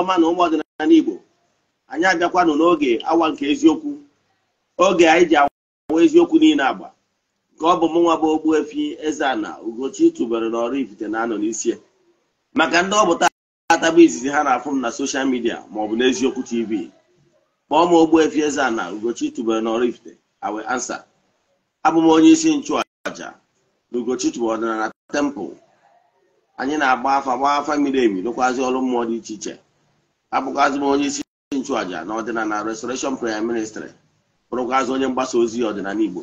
ọma na ụmụ ọdịnala Igbo, anyị abịakwanụ n'oge awa nke eziokwu oge anyị ji awa eziokwu niile agba nke ọ bụ mụnwa bụ Ogbuefi Eze-Ana Ugochi tụbere n'Oraifite na-anọ n'isi maka ndị ọ bụ taata bụ izizi ha na-afụ m na soshal midia maọbụ n'eziokwu tv kpọọ m efi Eze-Ana Ugochi tụbere n'Oraifite awe ansa abụ m onye isi nchụàja na Ugochi tụbere ọdịnala tempụl anyị na-agba afa gbaa afa miri emi rụkwazi ọrụ mmụọ dị iche iche abụgazi m onye isi n'ọdịna na ọdịnala restoration prayer ministry bụrụgazi onye mgbasa ozi ọdịnala igbo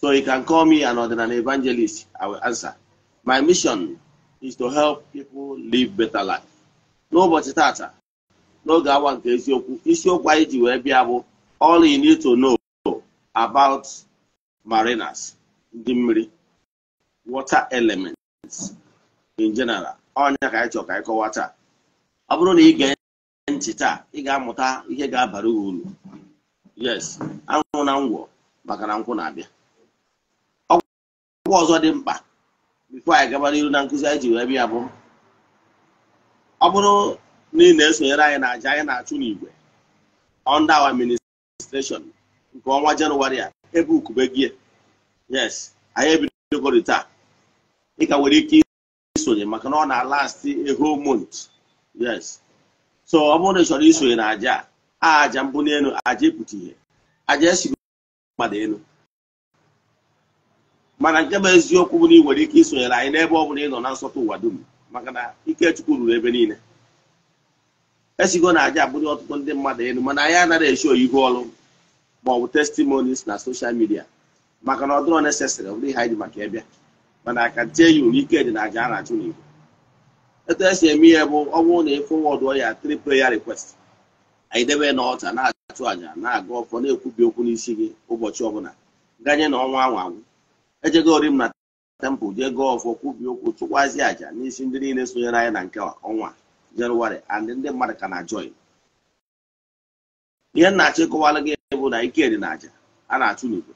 so you can call me an ọdịnala evangelist i will answer my mission is to help people live better life. n'ụbọchị tata n'oge awa nke eziokwu isiokwu anyị ji wee bịa bụ all you need to know about mariners ndị mmiri water elements in general ọnya ka anyị ka anyị kọwa taa ọ bụrụ na ị ntị taa ị ga-amụta ihe ga-abara uru yes anwụ na ngwọ maka na nkwụ na-abịa ọgwụ ọzọ dị mkpa bifo anyị gabara iru na nkụzi anyị ji wee bịa bụ ọ bụrụ na ị na-esonyere anyị na aja anyị na-achụ n'igwe under our ministration nke ọnwa jenụwarị a ebe ukube gị e. yes anyị ebidogori taa ị ka nwere ike isonye maka na ọ na-alast eho whole yes so ọ bụrụ na ị chọrọ isonye na aja a aja mbụ n'elu aja ịpụta ihe aja esiri mmadụ elu mana nke bụ eziokwu bụ na ị nwere ike isonyere anyị n'ebe ọ bụla ị nọ na nsọtụ ụwa dum maka na ikechukwu ruru ebe niile esigo na aja abụghị ọtụtụ ndị mmadụ elu mana anyị anaghị eshi oyibo ọrụ ma ọ bụ na soshal midia maka na ọ dịrọ nesesịrị ọ bụrụ ihe anyị ji maka ịbịa mana aka tie ya uru ike dị na aja a na-achụ n'igwe etu esi eme ihe bụ ọ bụrụ na ị fọwọdụ ya tripl ya rikwest anyị debe n'ọta na-achụ àjà na-aga ọfọ na-ekwubi okwu n'isi gị ụbọchị ọbụla ganye na ọnwa anwa anwụ ejego ori m na tempụl jee gọọ ọfọ kwubi okwu chụkwazi àjà n'isi ndị niile sonyere anyị na nke ọnwa jenụwarị and ndị mmadụ ka na-ajọị ihe na achịkọwala gị bụ na ike dị na àjà a na-achụ n'igwe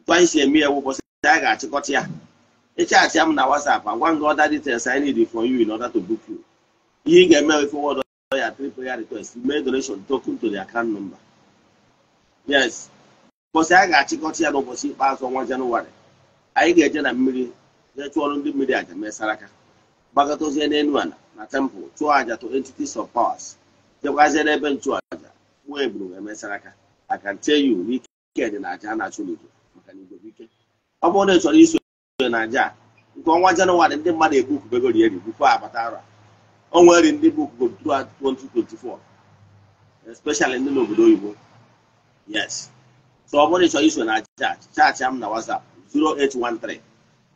etu anyị si eme ya bụ ụbọchị anyị ga-achịkọta ya ịchaatị m na WhatsApp agwa gị details I need for you in order to book you ihe ị ga-eme forward ya three ya request mee donation token to the account number yes mbọsị a ga-achịkọta ya n'ụbọchị ikpeazụ ọnwa janụwarị anyị ga-eje na mmiri jee chụọrọ ndị mmiri aja mee saraka gbakọtazie n'elu ala na temple chụọ aja to entities of powers jekwazie n'ebe nchụaja nwa eburu wee mee saraka I can tell you n'ike dị na aja a na-achụ n'igwe maka na igwe ike ọ bụrụ na ị chọrọ iso naija nke ọnwa Janụwarị, ndị mmadụ ebupụbego ri eri bukwa abata ara onwe nri ndị bupụgo 2024 especially ndị n'obodo oyibo yes so ọ bụrụ ịchọ iso na chaachị chaachị m na whatsapp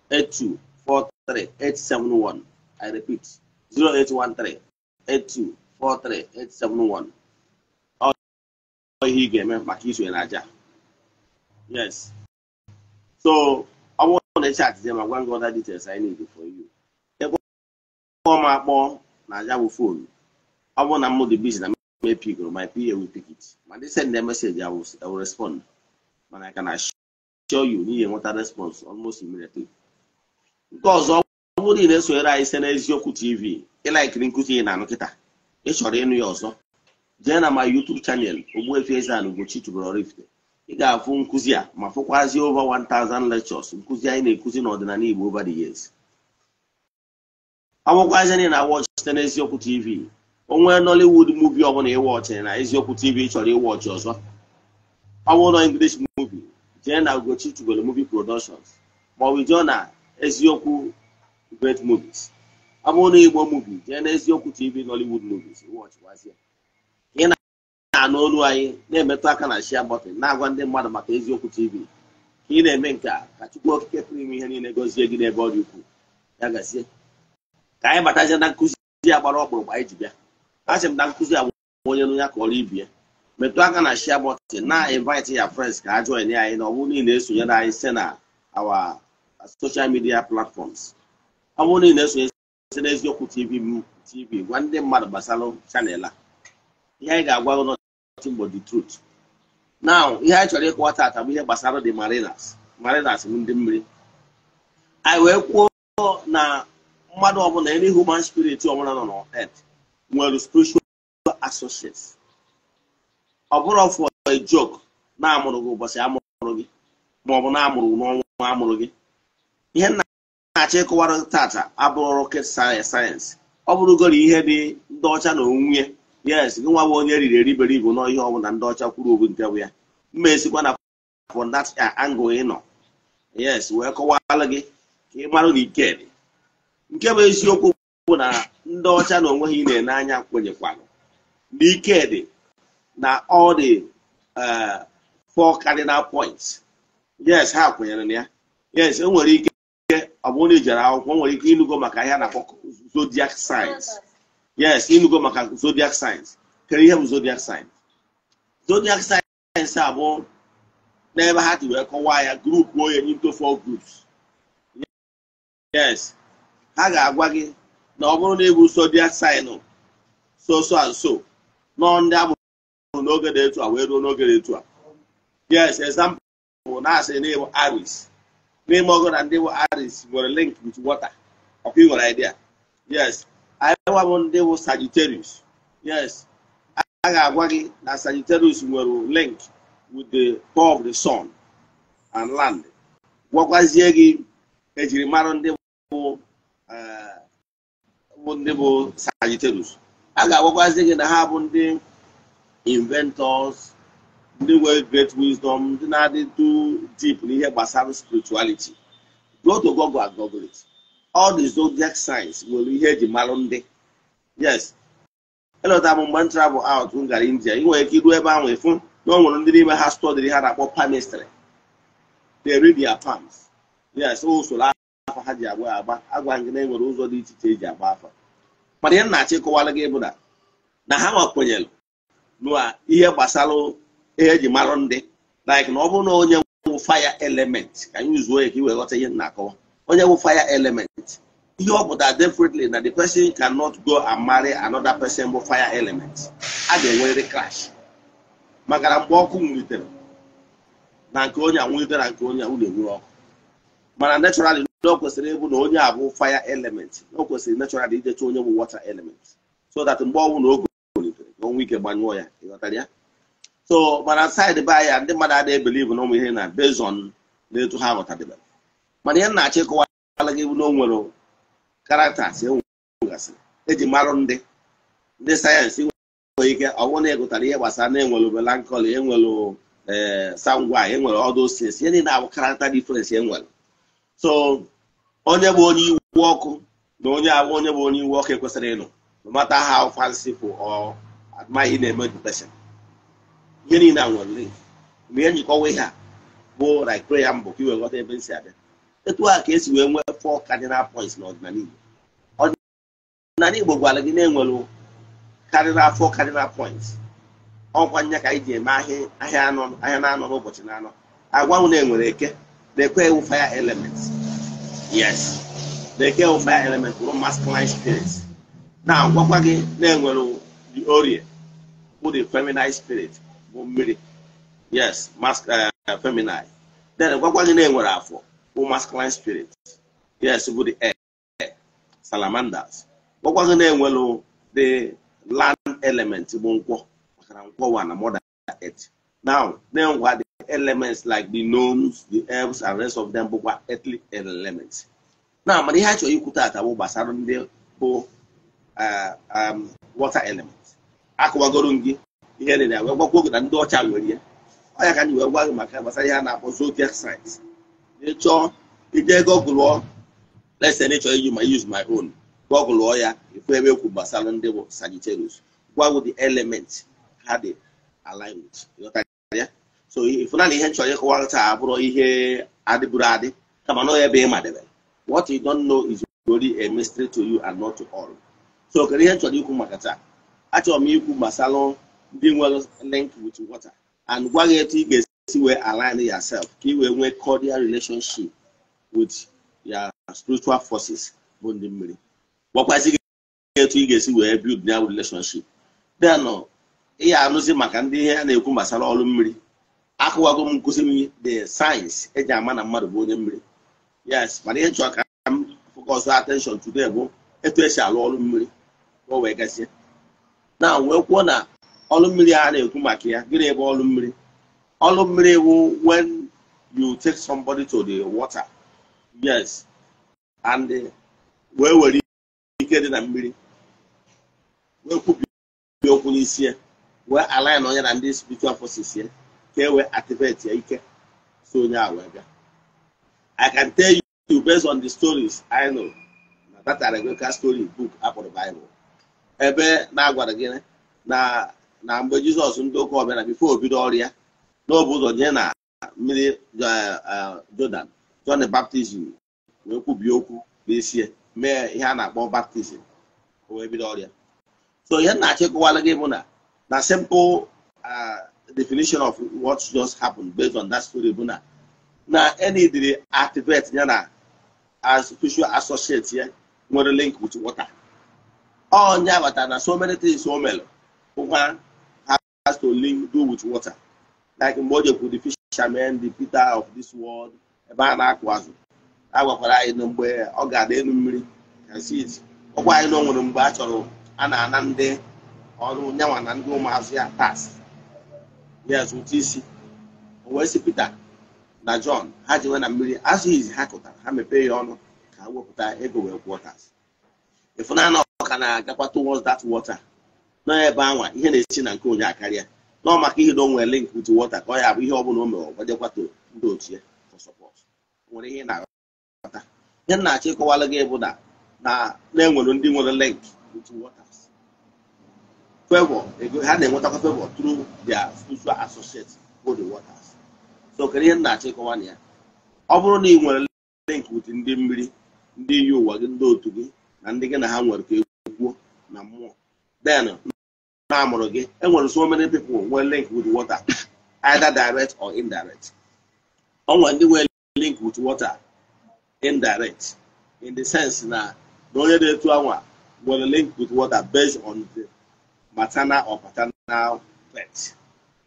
08138243871 i repeat 08138243871 ọ ihe ị ga-eme maka iso na aja yes so gonna chat them. I'm gonna go other details I need for you. Kpọọ m akpọ na aja bụ fon ọ bụrụ na mmadụ bizi na m epigoro my PA will pick it ma they send I ewu respond mana ka na show you n'ihe nweta response almost immediately. nke ọzọ ọ bụrụ ị na-esonyere anyị site n'eziokwu tv ịlaikiri nkụzi ị na-anụ kịta ị ịnụ ya ọzọ jee na ma chanel eze ị ga-afụ nkụzi a ma fụkwazie over 1000 lectures nkụzi anyị na-ekuzi n'ọdịnala Igbo over the years awụkwazi anyị na watch site n'eziokwu eziokwu tv onwe Nollywood movie ọbụla ịwọchị na eziokwu tv chọrọ ịwọchị ọzọ ọbụla English movie jee na Ugochi Tubelu movie productions maọbụ jụọ na eziokwu great movies ọ bụrụ na Igbo movie jee na eziokwu tv Nollywood movies ịwọchịkwazie a anụ olu anyị na-emetụ aka na shia na-agwa ndị mmadụ maka eziokwu tv ka ị na-eme nke a ka chukwu okike pụrụ ime ihe niile gọzie gị n'ebe ọ dị ukwuu ya gazie ka anyị batazie na nkụzi ya gbara ọkpụrụkpụ anyị ji bịa asị m na nkụzi agba onye nụ ya ka ọrụ ibie metụ aka na shia bọtịn na-invite ya friends ka a join anyị na ọ bụrụ niile esonyere anyị site na our social media platforms ọ bụrụ niile esonye site na eziokwu tv tv gwa ndị mmadụ gbasara chanel a ihe anyị ga-agwa ụlọ nothing but the truth now ihe anyị chọrọ ịkọwa taata bụ ihe gbasara the marinas marinas bụ ndị mmiri anyị wee kwuo na mmadụ ọbụla any human spirit ọbụla nọ na earth nwere spiritual associates ọ bụrụ for a joke na-amụrụ gị ụbọchị amụrụ gị maọbụ na-amụrụ n'ọnwa amụrụ gị ihe nna na-achọ ịkọwara taata abụrụ rocket sayensị ọ bụrụgoro ihe dị ndị ọcha na onwunye yes gị nwa bụ onye riri ibu n'ihe ọbụla ndị ọcha kwuru obu nke bụ ya mma esikwa na for that uh, angle ị nọ yes wee kọwalụ gị ka ị marụ na ike dị nke bụ eziokwu bụ na ndị ọcha na onwe ha na-ene anya kwenyekwanụ na ike dị na all the uh, four cardinal points yes ha kwenyere na ya yes enwere ike ọ bụ na ị jere akwụkwọ nwere ike ịnụgo maka ahịa na zodiac signs yes ịnụgo maka zodiac signs kere ihe bụ zodiac signs zodiac signs bụ n'ebe ha ji wee kọwaa ya grupu onye into four groups yes ha ga-agwa gị na ọ bụrụ na ịbụ zodiac sign so so and so nọ ndị amụrụ n'oge dị etu a wee ruo n'oge dị etu a yes example bụ na asị na ịbụ Aris. n'ime ọgụ na ndị bụ Aris nwere link with water ọkwa ị nwere idea yes anyị nwa m ndị bụ Sagittarius yes a ga-agwa gị na Sagittarius nwere link with the core of the sun and land gwakwazie gị ejirimara ndị bụ ndị bụ Sagittarius a ga-agwakwazi gị na ha bụ ndị inventors ndị nwere great wisdom ndị na-adị too deep n'ihe gbasara spirituality go to Google and Google it all the zodiac signs nwere ihe eji marụ ndị yes elọta m mgbe travel out m gara india ị nwere ike iru ebe ahụ ịfụ na ọ nwere ndị n'ime ha stọdịrị ha na-akpọ pamistry. they read their palms yes usoro afa ha ji agba agba agwa gị na enwere ụzọ dị iche iche eji agba afa mana ihe nna achịkọwara gị bụ na na ha nwakwenyere na ihe gbasara ihe eji marụ ndị like na ọ bụrụ na onye nwụ fire element ka anyị zuo ya ka i wee ghọta ihe nna akọwa onye wụ fire element ihe ọ pụtara definitely na the person cannot go and marry another person bụ fire element a ga-enwerịrị crash maka na mgbe ọkụ nwulitere na nke onye nwulitere na nke onye a na-enwere ọkụ mana naturally na o kwesịrị ịbụ na onye a bụ fire element o kwesịrị naturally idecha onye bụ water element so that mgbe ọnwụ na oge nwulitere ka onwe ike gbanyụọ ya ịghọtara ya so mana side by ya ndị mmadụ adịghị ebelivu na ụmụ ihe na bezon na etu ha ghọtadebere mana ihe nna-achọ ịkụwara gị na o nwere karaktas enwegasịrị eji marụ ndị ndị sayensị nwere ike ọnwụ na ịgụtara ihe gbasara na enwere melankoli enwere eh, sangwa enwere ọdụsis osisi ihe niile abụ karakta difrensị enwere so onye bụ onye iwu ọkụ na onye abụ onye bụ onye iwu ọkụ ekwesịrị ịnụ no ha how fanciful or na-eme the ihe niile a nwere mgbe ihe njikọwa ihe a bụ like prayer mbụ ka iwegọta ebe m si abịa etu a ka esi wee nwee four cardinal points n'ọdịnala Igbo ọdịnala Igbo gwara gị na-enwere cardinal four cardinal points ọkwa nya ka anyị ji eme ahịa ahịa na-anọ n'ụbọchị na-anọ agwanwụ na-enwere eke na-ekwe ewu fire element yes na-eke ewu fire element bụrụ masculine spirit na-agwakwa gị na-enwere the orie bụ the feminine spirit bụ mmiri yes eh, feminine then gwakwa gị na-enwere afọ bụ masculine spirit yes bụ the air salamanders ọkwazi na-enwelu oh, the land element bụ nkwọ makana nkwọ wa na mother earth now na-enwekwa the elements like the gnomes the elves and rest of them bụkwa earthly elements na mana ihe a chọrọ ikwu taata gbasara ndị bụ water element ihe ndị ọcha nwere ya ọ ka anyị wee gwa maka gbasara ihe a na-akpọ zodiac ịchọọ ije gọgụlụọ lesen ịchọọ iji ma use my own gọgụlụọ ya ifu ebe ekwu gbasara ndị bụ Sagittarius gwago the element ha dị align with so ifụna na ihe nchọrọ ịkọwa taa abụrụ ihe adịbụrụ adị kama na ebe ị madebere what you don't know is only a mystery to you and not to all so kedu ihe nchọrọ ikwu maka taa achọrọ m ikwu gbasara ndị nwere link with water and gwa gị etu ị ga-esi esi wee align yourself ka ị wee nwee cordial relationship with your spiritual forces bụ ndị mmiri gwakwazi gị etu ị ga-esi wee build ya relationship then ị ya anụzi maka ndị ihe a na-ekwu gbasara ọrụ mmiri akụwago m nkụzi m the science eji ama na mmadụ bụ onye mmiri yes mana ihe chọrọ ka m focus attention today bụ etu esi alụ ọrụ mmiri ka wee gasịa na wee kwuo na ọrụ mmiri a na-ekwu maka ya gịnị ebe ọrụ mmiri ọlụ mmiri wụ when you take somebody to the water yes and eh, wee were ike dị na mmiri wee kwubi okwu n'isi ya wee align onye na ndị spiritual forces ya ka e wee ya ike so onye a wee bịa i can tell you based on the stories i know na that Arabic story book akpọrọ Bible ebe na-agwara gị na na mgbe Jizọs ndị ụka ọbịa na bifo o ọrụ ya n'obu ụzọ jee na mmiri eh, eh, Jordan John baptizim wee kwubie okwu n'isi mee ihe a na-akpọ baptizim wee bido ọrịa so ihe nna achịkọwala gị bụ na na simple eh, definition of what just happened based on that story bụ na na enidiri activate ya na spiritual ya nwere link with water ọ nya na so many things o mere ụkwa has to link do with water like mgbe o jekwu the fishermen the Peter of this world ebe a na-akụ azụ a gwakwara anyị mgbe ọ ga-ada elu mmiri ọkwa anyị na o nwere mgbe a chọrọ a na-ana ndị ọrụ nyanwa na ndị ụmụazụ ya tas ya zụta isi o wee si Peter na John ha nwe na mmiri azụ izi ha kụtara ha mepee ya ọnụ ka ha wepụta ego wee kwụọ tas ịfụnanya ọka na-agakwa towards that water n'ebe ebe anwa ihe na-esi na nke onye akarịa nọ maka ihe na onwe link with water ka ọ ya bụ ihe ọ bụla o mere ọgwadekwa ndị otu ya for support nwere ihe na-aghọta ihe na-achọ ịkọwalụ gị bụ na na-enwere ndị nwere link with water favor ego ha na-enwetakwa favor through their social associate for the waters so kedu ihe na-achọ ịkọwa na ya ọ bụrụ na ị nwere link with ndị mmiri ndị iyi ụwa gị ndị otu gị na ndị gị na ha nwere ka ekwuo na mmụọ den na-amụrụ gị enwere so many people nwee link with water either direct or indirect onwe ndị nwee link with water indirect in the sense na na onye na-etu anwa were link with water based on the maternal or paternal birth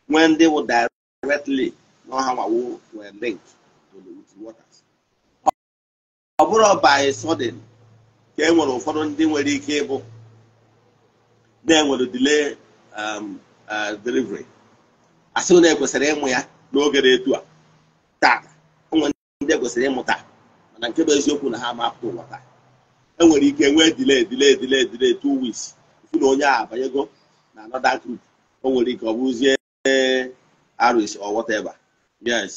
nwee ndị wụ directly na ọha nwawo were link with water ọ bụrụ by sudden ka e nwere ụfọdụ ndị nwere ike ịbụ na-enwere delay um, uh, delivery asị na ekwesịrị ịmụ ya n'oge etu a tata enwere ndị ekwesịrị taa, mana nke bụ eziokwu na ha mapụta ụwa taa enwere ike nwee delay delay delay delay two weeks ifu na onye a abanyego na another group o nwere ike ọ bụzie aris or whatever yes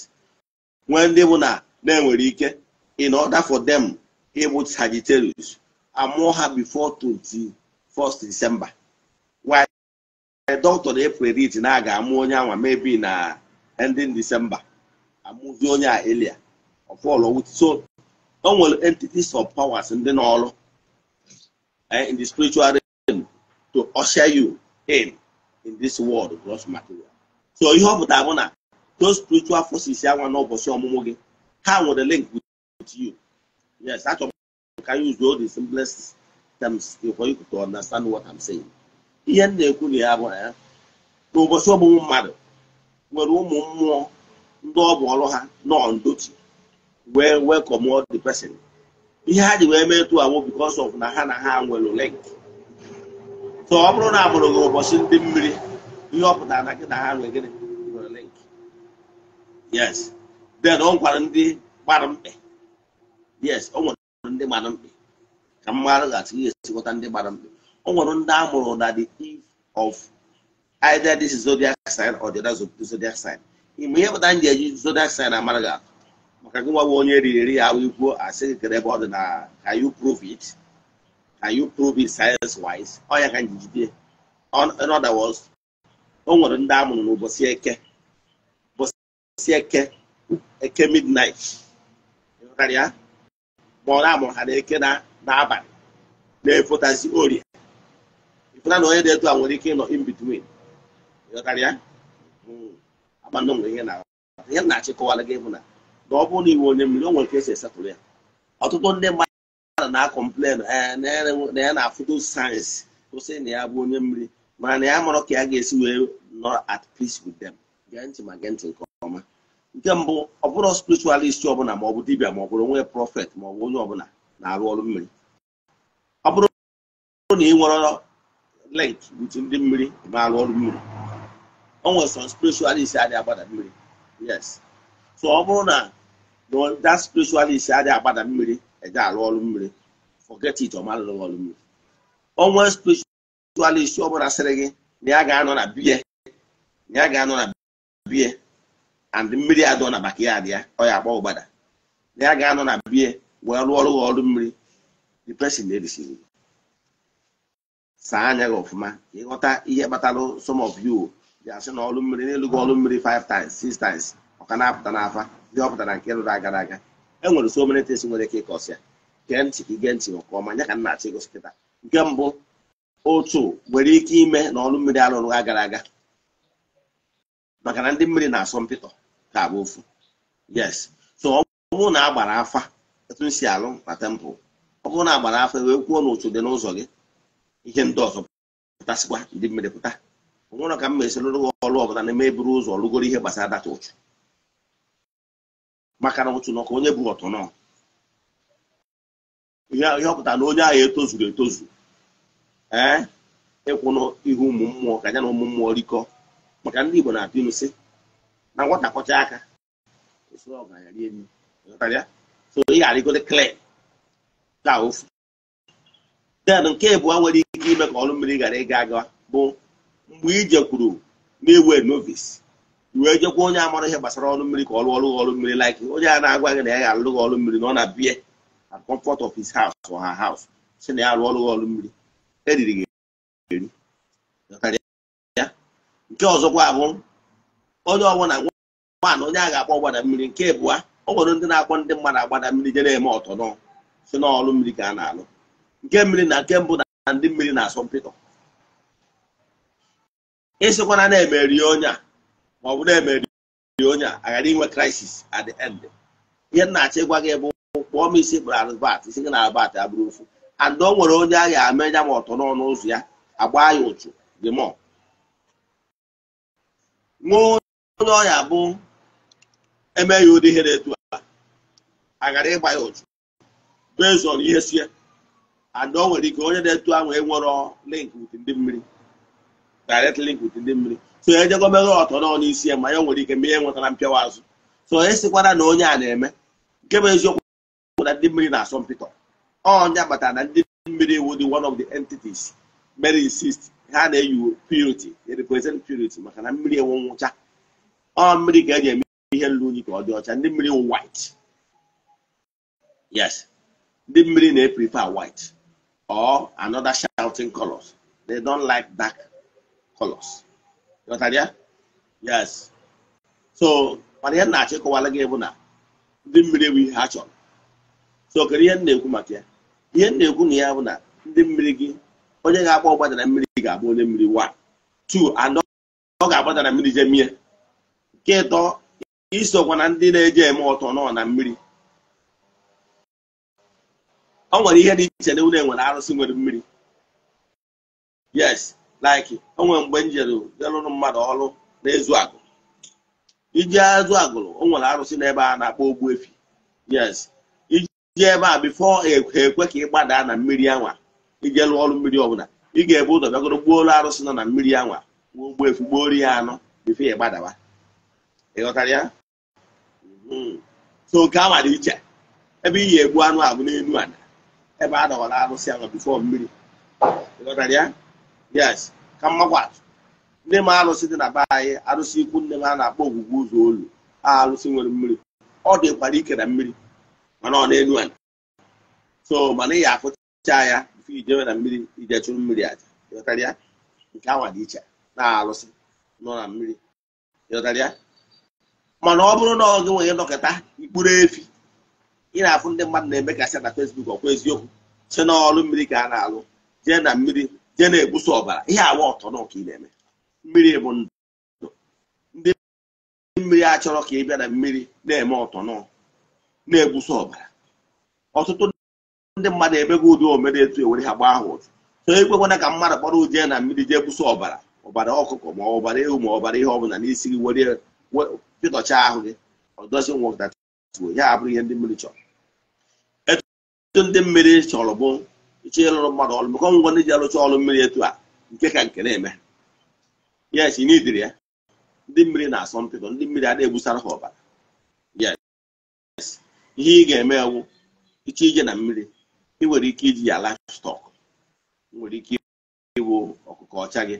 nwee ndị bụ na na-enwere ike in order for them ịbụ Sagittarius amụọ ha before 21st December dọktọ na-epredict na aga ga-amụ onye anwa mebi na ending December amụzi onye a elia ọfọlọ so o nwere entities of powers ndị n'ọrụ eh, in the spiritual realm to usher you in in this world gross material so ihe ọ pụtara bụ na those spiritual forces anwa n'ụbọchị ọmụmụ gị ha nwere link with you yes achọrọ m ka use all the simplest terms for you to understand what I'm saying. ihe m na-ekwu na ya bụ na ya n'ụbọchị ọmụmụ mmadụ nwere ụmụ mmụọ ndị ọ bụ ọrụ ha nọ ndochi wee welcome the person ihe ha ji wee mee tụ awụ because of na ha na ha nwere link so ọ bụrụ na amụrụ gị ụbọchị ndị mmiri ihe ọ pụtara na gị na ha nwere gịnị nwere link yes then ọ gwara ndị gbara mkpe yes ọ nwere ndị gbara mkpe ka m marụghachi ya esikọta ndị gbara mkpe o nwere ndị a mụrụ na the eve of either this zodiac sign or the other zodiac sign ime ihe pụta m eji zodiac sign amara gị atụ maka gị nwa bụ onye riri eri ya ikwuo asị kere ebe ọ dị na can you prove it can you prove it science wise ọ ya ka m ji jide in other words o nwere ndị a mụrụ n'ụbọchị eke ụbọchị eke eke midnight ma ọ na-amụrụ ha na eke na-abalị na-efotazi orie pụta na onye dị etu a nwere ike ịnọ in between hmm. ihe na-achịkọwala gị bụ na na ọ bụrụ na iwe onye mmiri o nwere ka esi esepụrụ ya ọtụtụ ndị mmadụ na-akọmplen eh, na ya na-afụdo sayensị kwụsị na ya bụ onye mmiri mana na ya marọ ka ya ga-esi wee nọ at peace with them gee ntị ma gee ntị nke ọma nke mbụ ọ bụrụ spiritualist ọbụla ma ọ bụ dibia ma ọ bụrụ onwe prọfet ma ọ bụ onye ọbụla na-arụ ọrụ mmiri ọ bụrụ na ị nwere link with ndị mmiri ma arụ ọrụ mmiri o nwere some adịghị agbada mmiri yes so ọ bụrụ na that spiritualist adịghị agbada mmiri eje arụ ọrụ mmiri forget it ọ marụrụ ọrụ mmiri onwe spiritualist ọ bụla sịrị gị na ya ga-anọ na biya na ya ga-anọ na biya and mmiri adọ na backyard ya ọ ya agba ụgbada na ya ga-anọ na biya wee rụọ ọrụ ọrụ mmiri the person na-erisighị saa anya gị ọfụma ịghọta ihe kpatara some of you ji asị na ọlụ mmiri n'elu gị ọlụ mmiri 5 times 6 times ọka na-apụta n'afa ndị ọ pụtara nke rụrụ agara aga e nwere so many things nwere ike ịkọsi ya gee ntị ka ige ntị nke ọma nya ka m achọ kịta nke mbụ otu nwere ike ime na ọlụ mmiri arụrụ gara aga maka na ndị mmiri na-asọ mpịtọ ka abụ ofu yes so ọ bụrụ na agbara afa etu si alụ na tempụl ọ bụrụ na agbara afa wee kwuo n'otu dị n'ụzọ gị ihe ndị ọzọ pụtasịkwa ndị mmiri pụta onwerọ ka m ma esi lụrụ gị ọlụ ọbụla na-eme eburu ụzọ lụgoro ihe gbasara data ụchụ maka na ụchụ nọ onye bụ ọtụ nọ ihe ọpụta na onye ahụ etozuru etozu ee ịkwụnụ ihu ụmụ mmụọ ka na ụmụ mmụọ rikọ maka ndị Igbo na-atụ ilu na nwata kọcha aka so ị ka ofu den nke bụ nwere ike ime ka ọrụ mmiri ghara ịga aga bụ mgbe ijekwuru kwuru na-ewe novice wee jekwa onye amara ihe gbasara ọrụ mmiri ka ọ rụọ ọrụ ọrụ mmiri like onye a na-agwa gị na ya ga-alụ gị ọrụ mmiri na ọ na-abịa na comfort of haus house or her si na ya rụọ ọrụ ọrụ mmiri eriri gị eri nke ọzọkwa bụ onye ọbụla nwaanyị onye a ga-akpọ ọgbada mmiri nke bụa ọ nwere ndị na-akpọ ndị mmadụ agbada mmiri je na-eme ọtọ nọ si n'ọrụ mmiri ka a na-alụ nke mmiri na nke mbụ na ndị mmiri na-asọ mpịtọ ịsịkwana na-emeri onye a ma ọ bụ na-emeri onye a aghara inwe crisis at the end ihe nna-achọ ịgwa gị bụ kpọọ m isi kpụrụ albat isi gị na albert abụrụ ofu and o nwere onye agha ga-ama ya ma ọtọ n'ọnụ ụzọ ya agba ya ụchụ dị mọ nwee onye ọya bụ emeghị ụdị ihe na-etu aghara ịgba ya ụchụ bezon ihe sie and o nwere ike onye na-etu ahụ enwero link with ndị mmiri direct link with ndị mmiri so ejego meghe ọtọ nọ n'isi ya ma ya nwere ike mee nwetara mpịawa azụ so esikwara na onye a na-eme nke bụ eziokwu na ndị mmiri na-asọ mpịtọ onye agbata na ndị mmiri iwu dị one of the entities mere insist ha na-eyi purity represent purity maka na mmiri enwe nwụcha ọ mmiri ka eji eme ihe nlu unyi ka ọ dị ọcha ndị mmiri white yes ndị mmiri na-eprefer white or another shouting colors. They don't like dark colors. You understand? Yes. So, mana ihe na-achịkọwala gị bụ na ndị mmiri bụ ihe ha chọrọ. So, kedu ihe na-ekwu maka ya? Ihe na-ekwu na ya bụ na ndị mmiri gị onye ga-agba na mmiri ga-abụ onye mmiri one two and ọ ga na mmiri jemie nke ịtọ isokwa ndị na-eje eme ọtọ nọ na mmiri ọ nwere ihe dị iche na unu enwere arụsị nwere mmiri yes like o nwere mgbe m jelụrụ mmadụ ọrụ na-ezu agụ iji azụ agụrụ o nwere arụsị n'ebe a na-akpọ ogbu efi yes iji ebe a bifo ekwe e ka ị gbadaa na mmiri anwa ije lụọ ọrụ mmiri ọbụla ị ga-ebu ụzọ bịagoro gbuo olu arụsị nọ na mmiri anwa gbuo ogbu efi gbuo ori ya anọ bifo ya gbadawa ịghọtara ya so nke anwa dị iche ebe ị ga-egbu anụ abụ n'elu ala ebe a dọwara arụsị ahụ bifo mmiri yes ka mmakwatụ ndị m arụsị dị na be anyị arụsị ikwu nne m a na-akpọ ogwugwu ụzọ olu a arụsị nwere mmiri ọ dị dịkwara ike na mmiri mana ọ na-elu ala so mana ị ya afụcha ya bifo ijewe na mmiri ije chụrụ mmiri aja ịghọtara nke anwa dị iche na arụsị nọ na mmiri ịghọtara mana ọ bụrụ na ọ gị nwere dọkịta mkpụrụ efi ị na-afụ ndị mmadụ na-eme ka na fesbuk ọkwa eziokwu si n'ọrụ mmiri ka a na-alụ jee na mmiri jee na-egbusa ọbara ihe awa ọtọ na ị na-eme mmiri bụ ndụ ndị mmiri a chọrọ ka ị bịa na mmiri na-eme ọtọ na-egbusa ọbara ọtụtụ ndị mmadụ emego ụdị omere etu ewere ha gbaa ha ụtụ so ekwekwana ka mmadụ kpọrọ jee na mmiri jee gbusa ọbara ọbara ọkụkọ ma ọbara ewu ma ọbara ihe ọbụla n'isi gị were pịtọcha ahụ gị ọdozi nwoke ya abụrụ ihe ndị mmiri chọrọ ọtụtụ ndị mmiri chọrọ bụ ịchọ ịlụrụ mmadụ ọrụ bụkọ ngwa ndị ji alụcha ọrụ mmiri etu a nke ka nke na-eme yes n'idiri ya ndị mmiri na-asọ mpịkọ ndị mmiri adịghị egbusara ha ọbara yes ihe ị ga-eme ewu ịchọ ije na mmiri ị nwere ike iji ya livestock nwere ike iwu ọkụkọ ọcha gị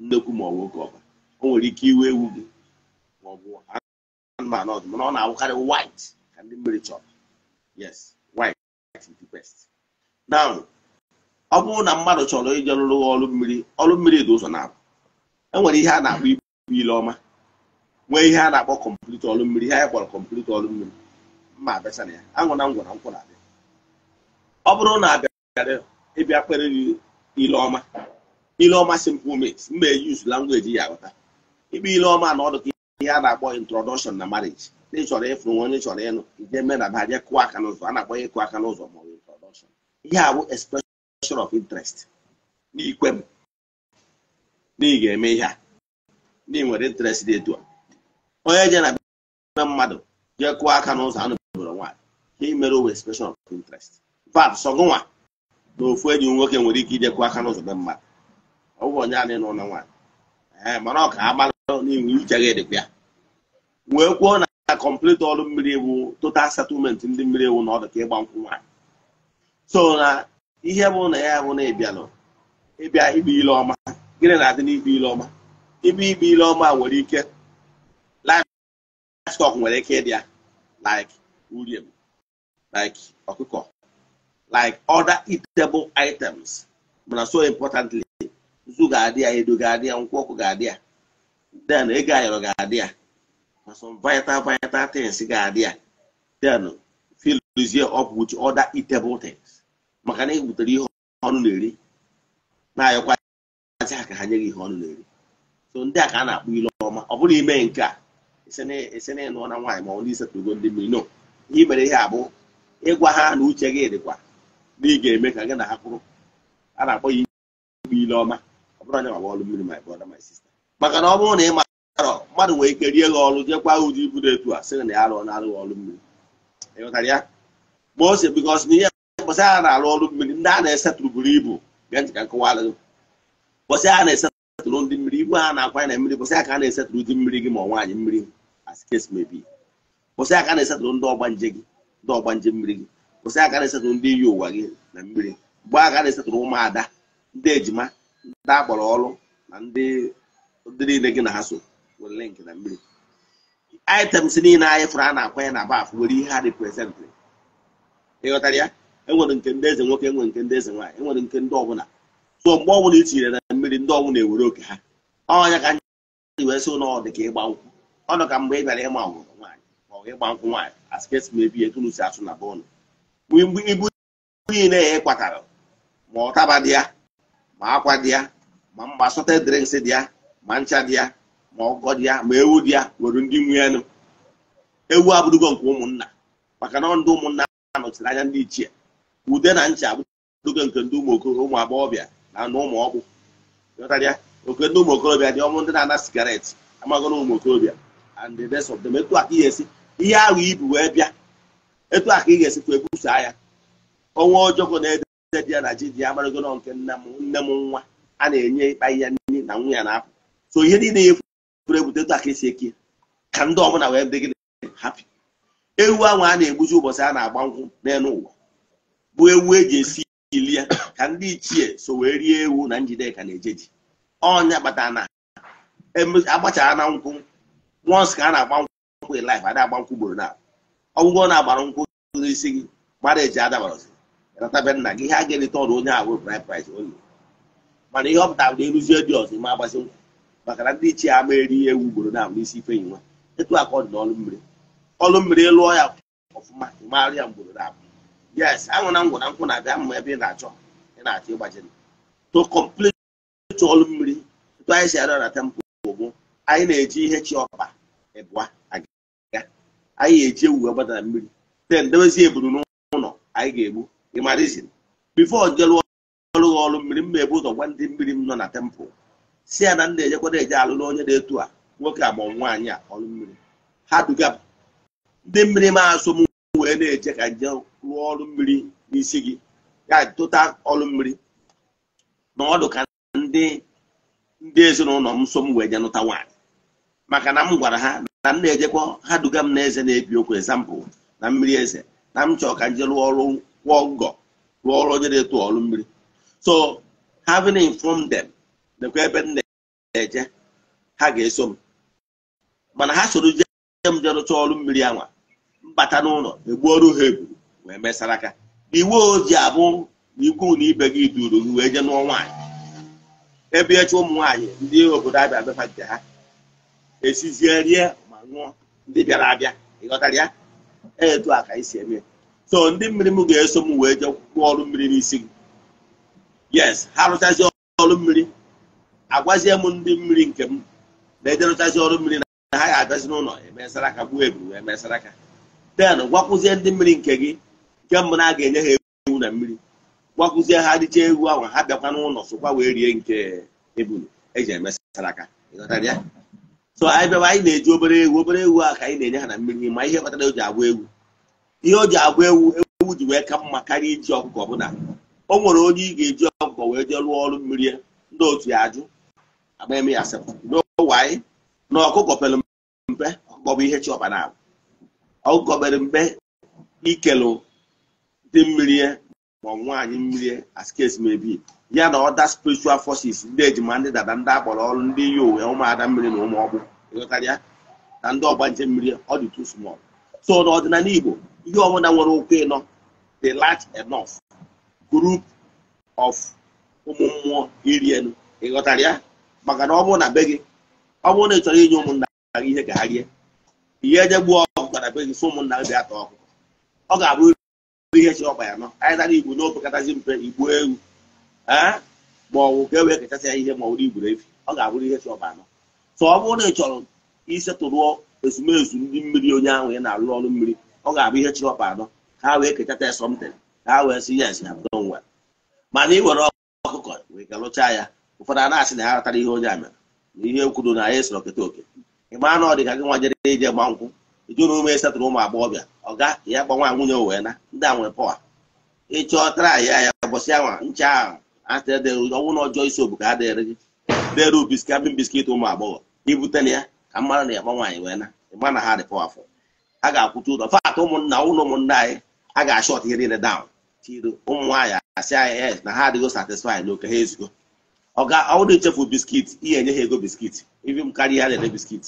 nnekwu ma ọ bụ oke ọba o nwere ike iwu ewu gị ma ọ bụ anụmanụ ọdụ mana ọ na-awụkarị white ka ndị mmiri chọrọ yes na ọ bụrụ na mmadụ chọrọ ije rụrụ ọrụ mmiri ọrụ mmiri dị ụzọ na-abụ enwere ihe a na-akpọ ibu ile ọma nwee ihe a na-akpọ kọmpliti ọrụ mmiri ihe anyị kpọrọ kọmpliti ọrụ mmiri mma abịacha na ya anwụ na nkwụ na-abịa ọ bụrụ na abịara ịbịa kpere ile ọma ile ọma simplement mba eji langweji ya aghọta ikpe ile ọma na ọdụ ka ihe a na-akpọ introduction na marriage na ịchọrọ ịfụrụ nwa onye chọrọ ịnụ ije mee na ba je kụọ aka n'ụzọ a na-akpọ ya ịkụ aka n'ụzọ ma ihe a bụ expression of interest n'ikwe m na ga-eme ihe a na nwere interest dị etu a onye je na be mmadụ jee kụọ aka n'ụzọ anụ bụrụ nwaanyị ihe mere owe expression of interest vat sọgụnwa na ofu enyi nwoke nwere ike ije kụọ aka n'ụzọ be mmadụ ọ bụ onye anyị n'ụlọ nwaanyị ee mana ọ ka a mara n'iwu uche gị ya wee kwuo na complete ọrụ mmiri ewu total settlement ndị mmiri ewu na ọdụ ka ịgba nkwụ nwaanyị so na ihe bụ na ya bụ na ịbịalụ ịbịa ikpe ile ọma gịnị na-adị n'ikpe ile ọma ikpe ikpe ile ọma nwere ike livestock nwere ike ịdị ya like urim like ọkụkọ like other eatable items mana so importantly nzu ga-adị ya edo ga-adị ya nkwụ ọkụ ga-adị ya then ego ayọrọ ga-adị ya na some vital vital things ga-adị ya then fill up with other eatable things maka na ị butere ihe ọnụ na-eri na-ayọkwazị ha ka ha nye gị ihe ọnụ na-eri so ndị a ka a na-akpụ ile ọma ọ bụrụ ime nke a ese na ịnụọ na nwaanyị ma ọ ndị isetụgo ndị mmiri no ihe mere ihe abụ ịgwa ha na uche gị dịkwa na ị ga-eme ka gị na ha kwụrụ a na-akpọ ya ikpe ilu ọma ọ bụrụ anya ma ọlụ mmiri my brother my sister maka na ọ bụrụ na ị marọ mmadụ nwere ike rie gị ọrụ jekwa ụdị ibudo etu a sị na ya arụọ na-arụghị ọrụ mmiri ịghọtara ya ma ose bikos na ihe mbọsị ha na-arụ ọrụ mmiri ndị a na-esetụrụ buru ibu bịa nji ka nkụwala mbọsị ha na-esetụrụ ndị mmiri igwe ha na-akwanye na mmiri mbọsị ha ka a na-esetụrụ mmiri gị ma ọ nwaanyị mmiri as case may ha a na-esetụrụ ndị ọgbanje gị ndị ọgbanje mmiri gị mbọsị ha na-esetụrụ ndị iyi ụwa gị na mmiri mgbe ha na-esetụrụ ụmụada ndị ejima ndị akpọrọ ọrụ na ndị niile gị na ha so nwere link na mmiri niile anyị fụrụ a na-akwanye na baf nwere ihe ha reprezentịrị ịghọtara ya enwere nke ndị eze nwoke enwere nke ndị eze nwaanyị enwere nke ndị ọbụla so mgbe ọbụla i tinyere na mmiri ndị ọbụla ewere oke ha ọnya ka nji wee sị ụlọ dị ka ịgba nkwụ ọnụ ka mgbe ị bịara ịma nwụrụ nwaanyị ma ọ ịgba nkwụ nwaanyị askesi ma ebi etu si asụ na be Mgbe ibu niile ya ịkwatara ma ọtaba dị ya ma akwa dị ya ma mma sọte drinks dị ya ma ncha dị ya ma ọgọ dị ya ma ewu dị ya nwere ndị nwe elu ewu abụrụgo nke ụmụnna maka na ndị ụmụnna a nọchiri anya ndị ichie ude na ncha abụgo nke ndị ụmụ agbọghọbịa na ụmụ ọgwụ oke ndị ụmụ okorobịa dị ọmụ ndị na-ana sigaret amagona ụmụ okorobịa and the rest of them etu aka ihe esi ihe ahụ ibu wee bịa etu aka ị ga-esikwa ebusa ya ọnwa ọjọọ na-ede di ya na ji di ya amaragona nke nna m nne m nwa a na-enye ịkpa ihe nri na nwunye na-apụ so ihe niile ya e furu ebute etu aka esi eke ka ndị ọbụla wee dị gị hapi ewu ahụ a na-egbuji ụbọchị a na-agba nkwụ n'elu ụwa bụ ewu eji esi ili ya ka ndị ichie so wee rie ewu na njideka na-eje ji ọnya kpatara na agbachara e na nkwụ once ka a na-agba nkwụ life ada agba nkwụ ugboro na ọgwụgwọ na-agbara nkwụ n'isi gị mara eji adabara ratabe nna gị ihe a ga-erita ọrụ onye ahụ price price onye mana ihe ọ pụtara bụ eruzie dị ọzọ ma agbazi nkwụ maka na ndị ichie ama eri ewu ugboro na n'isi ife enyi nwa etu aka ọ dị n'ọlụ mmiri ọlụ mmiri lụọ ya ọfụma ịmara ya mgboro na abụ yes aṅụ na ngwụ na nkwụ na-abịa mma ebe ị na-achọ ị na-achọ ịgbaji to complete ọlụ mmiri tụtụ anyị si arịọ na tempụ bụ anyị na-eji ihe chi ọkpa ịbụa aga anyị eji ewu gbadara mmiri ten dewezi eburu n'ụlọ anyị ga-egbu ịmarizin bifo jelụọ ọrụ ọrụ mmiri mma ebu ụzọ gwa ndị mmiri m nọ na tempụl si ya na ndị ejekwada eje alụlụ onye na etu a nwoke a ma nwaanyị a ọrụ mmiri ha duga ndị mmiri ma asụ m wee na eje ka nje rụọ ọrụ mmiri n'isi gị ya tụta ọrụ mmiri na ọdụ ka ndị ndị ezinụlọ m so m wee je nụta nwaanyị maka na m gwara ha na m na-ejekwa ha duga m na eze na-ebi okwu ezampụl na mmiri eze na m chọọ ka nje rụọ ọrụ kwụọ ngọ rụọ ọrụ onye na-eto ọrụ mmiri so having informed them nekwa ebe m na-eje ha ga-eso m mana ha soro jee m je rụcha ọrụ mmiri anwa bata n'ụlọ e ọrụ ha eburu wee mesara aka iwu oji abụ na ikwu na ibe gị duru gị wee jee nụọ nwaanyị ebe ụmụ nwaanyị ndị obodo abịa nke ha esizie rie ma ṅụọ ndị bịara abịa ịghọtara ya e etu a ka anyị eme so ndị mmiri m ga-eso m wee jee kwụọ ọrụ mmiri n'isi gị yes ha rụchazie ọrụ mmiri agwazie m ndị mmiri nke m na-ejerụchazi ọrụ mmiri na ha ga agazi n'ụlọ emesara aka gbuo eburu wee mesara aka ten gwakwụzie ndị mmiri nke gị nke mbụ na a ga-enye ha ewu na mmiri gwakwụzie ha dịcha ewu ahụ ha bịakwa n'ụlọ sokwa wee rie nke ebulu eji emesara aka so anyị bịawa anyị na-eji obere ewu obere ewu a ka anyị na-enye ha na mmiri ma ihe kpatara o ji agwa ewu ihe o ji agwa ewu ewu ji wee ka mma karịa iji ọkụkọ ọbụla o nwere onye ị ga-eji ọkụkọ wee jee lụọ ọrụ mmiri ndị otu ya ajụ agba eme ya asịrị n'ụwa anyị na ọkụkọ pere mpe ọkụkọ bụ ihe chi ọba na-abụ Ọ gọbere mbe ikelu dị mmiri ya ma nwaanyị mmiri askes mebi ya na ọda spiritual forces ndị ejima ndị dada ndị akpọrọ ọrụ ndị yi uwe ụmụada mmiri na ụmụ ọgbụ na ndị ọgbanje mmiri ọ dị small so n'ọdịnala igbo ihe ọbụla nwere ụkwụ ịnọ dị large enough group of ụmụ mmụọ iri elu ịghọtara ya maka na ọ bụrụ na be gị ọ bụrụ na ị chọrọ inye ụmụnna ihe ka ha rie ihe eje bara be gị fụ ụmụnna m bịa ta ọkụkọ ọ ga-abụ ihe chọrọ ọkpa ya nọ anyị tara igbo n'opekatazi mpe igbo ewu ma ọwụ ka e wee kechasị ya ihe ma ọ bụrụ igburu efi ọ ga-abụrụ ihe chọrọ ọkpa anọ so ọ bụrụ na ị chọrọ isetụrụ ezumezu ndị mmiri onye ahụ ya na-alụ ọrụ mmiri ọ ga-abụ ihe chọrọ ọkpa anọ ka ha wee kechata ya sọmtin ka ha wee si yes ya bụrụ nwa mana ị were ọkụkọ wee galụchaa ya ụfọdụ a na-asị na ha ratara ihe onye a mere na ihe kwuru na anyị sịrị okete oke ị maa na ọ dị ka gị nwa jere ije gba nkwụ ejuru ume esatụrụ ụmụ agbọghọbịa ọ ọga ya gbanwa nwunye wee na ndị a nwere pọwa ịchọ tara ya ya bọsị anwa ncha ahụ atede ọnwụ na ọjọọ isi obodo adịghịrị gị dere biskit abịa biskit ụmụ agbọghọ ibute na ya ka mmadụ na ya gbanwaanyị wee na ịma na ha dị pọwa afọ a ga-akwụcha ụlọ fatụ ụmụnna ụlọ ụmụnna anyị a ga-ashọt ihe niile dawn tiro ụmụ nwaanyị asị anyị na ha adịghị satisfai na oke ha ezigo ezugo ọ ga ọwụrụ ichefu biskit ihe enye ha ego biskit ibi m karịa ya na-ere biskit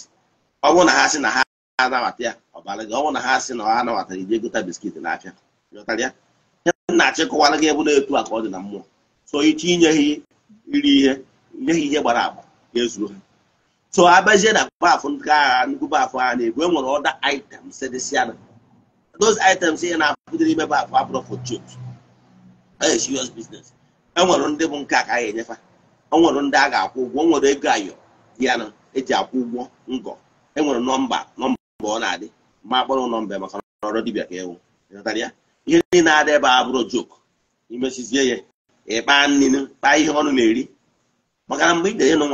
ọ bụrụ na ha sị na ha anabata ya ọbara gị ọ bụ na ha sị na ọ anabatara ije gota biskit n'afịa ịghọtara ya ihe na-achị kụwara gị ebe na-etu a ka ọ dị na mmụọ so ichi inye ha iri ihe nye ihe gbara agba ga-ezuru ha so abazie na baafụ nke agha nnukwu baafụ agha na-ebu enwere ọda item items e dịsịana those items ihe na-apụta ime baafụ abụrụ for joke ee serious business enwere ndị bụ nke a ka a ga-enyefa enwere ndị a ga-akwụ ụgwọ e nwere ego ayọ ya na eji akwụ ụgwọ ngọ enwere nọmba nọmba mgbe ọ na-adị ma akpọrọ ụlọ mbe maka ọrụ dibịa ka ewu ihe niile na-adị ebe a bụrụ joke imesizie ya ịkpa ninu kpaa ihe ọnụ na-eri maka na mgbe ị ga-enye nụ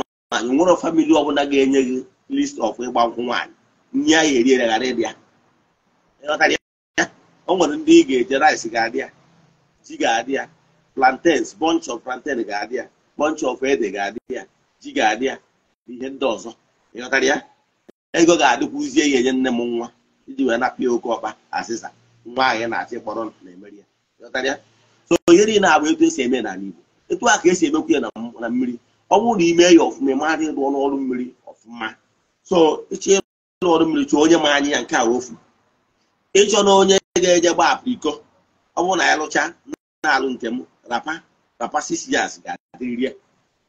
nwere famili ọbụla ga-enye gị list of ịgba nkwụ nwaanyị nye ya eriere ghara ịdị ya o nwere ndị ị ga-eje rice ga-adị ya ji ga-adị ya plantains bunch of plantain ga-adị ya bunch of ede ga-adị ya ji ga-adị ya ihe ndị ọzọ ịghọtara ya ego ga-adịkwuzie ya enye nne m nwa iji wee nakpa ya oke ọkpa asịsa nwa anyị na-achị kpọrọ na-emeri ya so ihe niile abụ etu esi eme n'ala Igbo etu a ka esi emekwu ya na mmiri ọ bụrụ na ime ya ọfụma ịmadị ịrụ ọrụ mmiri ọfụma so ịchọ ịrụ ọrụ mmiri chọọ onye ma anyị ya nke a ofu ịchọ na onye ga-eje gba apriko ọ bụrụ na ya lụcha na-alụ nke m rapa rapa six ga-adịrịrị ya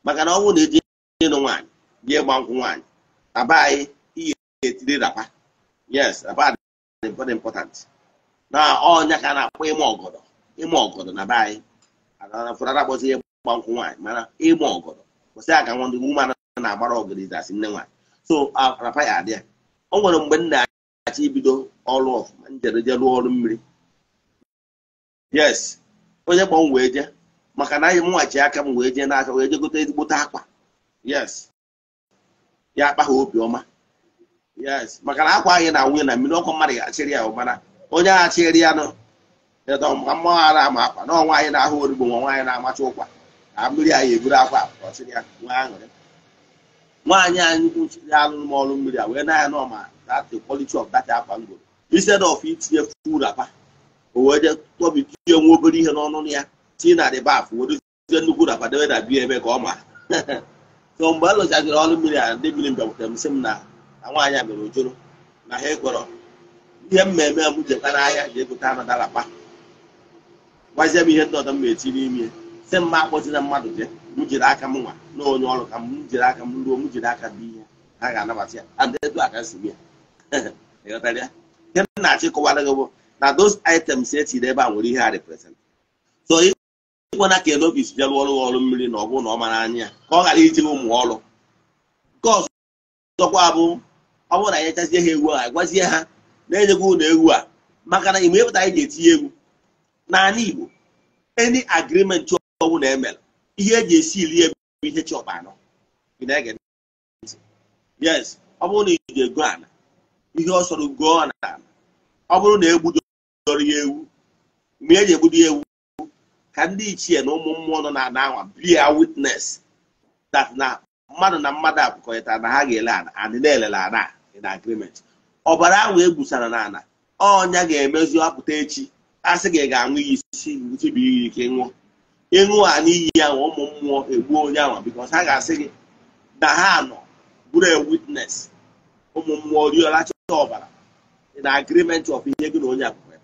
maka na ọ bụrụ na eji ịnụ nwaanyị bịa ịgba nkwụ nwaanyị aba anyị ga-etiri rapa yes rapa dị very important na ọnya ka na-akpọ ịma ọgọdọ ịma ọgọdọ na uh, be anyị agafụrara akpọzi ihe gba nkwụ nwaanyị mana ịma ọgọdọ kwụsị aka nwa ndị nwuma na-agbara ọgọdọ izasi nne nwaanyị so rapa ya adị ya o nwere mgbe nna na-achọ ibido ọrụ ọfụma njereje rụọ ọrụ mmiri yes onye kpọ m wee je maka na anyị mụnwachi aka m wee je n'aka wee je gote ezigbote akwa yes ya akpa ha obiọma yes maka na akwa anyị na nwunye na mmiri ọkụ mmadụ ga-achịrị ya ụbara onye agha chịrị ya nọ maka mmanwụ ara ama akwa na ọnwa anyị na-ahụ origbo nwa nwaanyị na-amacha ụkwa na mmiri anyị eburu akwa ọchịrị ya nwa aṅụrị nwaanyị anyị kwu alụ alụrụ m ọrụ mmiri a wee na ya na ma that the ọf of that akwa ngoro instead ọf itinye full rapa o wee je tọbi tinye nwa obere ihe n'ọnụ ya tii na dị baf wedozie nnukwu rapa debe na bie ebe ka ọ ma so mgbe a lụchaziri ọrụ mmiri a ndị mmiri mbịakwutere m sị m na nwaanyị a mere ojoro na ha ekwọrọ ihe mmemme m jekwa n'ahịa ji egote anụ dalakpa gwazie m ihe ndị ọdọ m na-eti n'ime si mma na mmadụ je m jiri aka m nwa na onye ọrụ ka m jiri aka m ruo m jiri aka dị ihe ha ga-anabata ya adịdu aka si ya ihe m na-achị kọwara gị bụ na those items etiri ebe a nwere ihe ha represent so ịkwena ka elobis bịa rụọ ọrụ ọrụ mmiri na ọ bụrụ na ọ mara anya ya ka ọ ghara iji ụmụ ọrụ nke ọzọ ọkwa bụ ọ bụrụ na anyị echazie ha egwu a gwazie ha na-enyegwu ụlọ egwu a maka na igbe ịpụta anyị ga-etinye egwu n'ala Igbo any chọwụ na emere ihe eji esi iri ebe bụ ihe chọpụ anọ yes ọ bụrụ na iji ego ala ihe ọ sọrọ gụọ ala ọ bụrụ na egbudoro ya ewu mgbe eji egbudo ya ewu ka ndị ichie na ụmụ mmụọ nọ na anwa bia witness that na mmadụ na mmadụ abụkọrịtara na ha ga-ele ala adị na-elele in agreement ọbara ahụ egbusara n'ala ọnya ga emezu apụta echi asị gị ga-aṅụ iyi isi bụ iyi ike ṅụọ ịṅụ a n'iyi ya ụmụ mmụọ egbuo onye ahụ because ha ga-asị gị na ha nọ bụrụ a witness ụmụ mmụọ riola chọta ọbara in agreement of ihe gị na onye akwụkwọ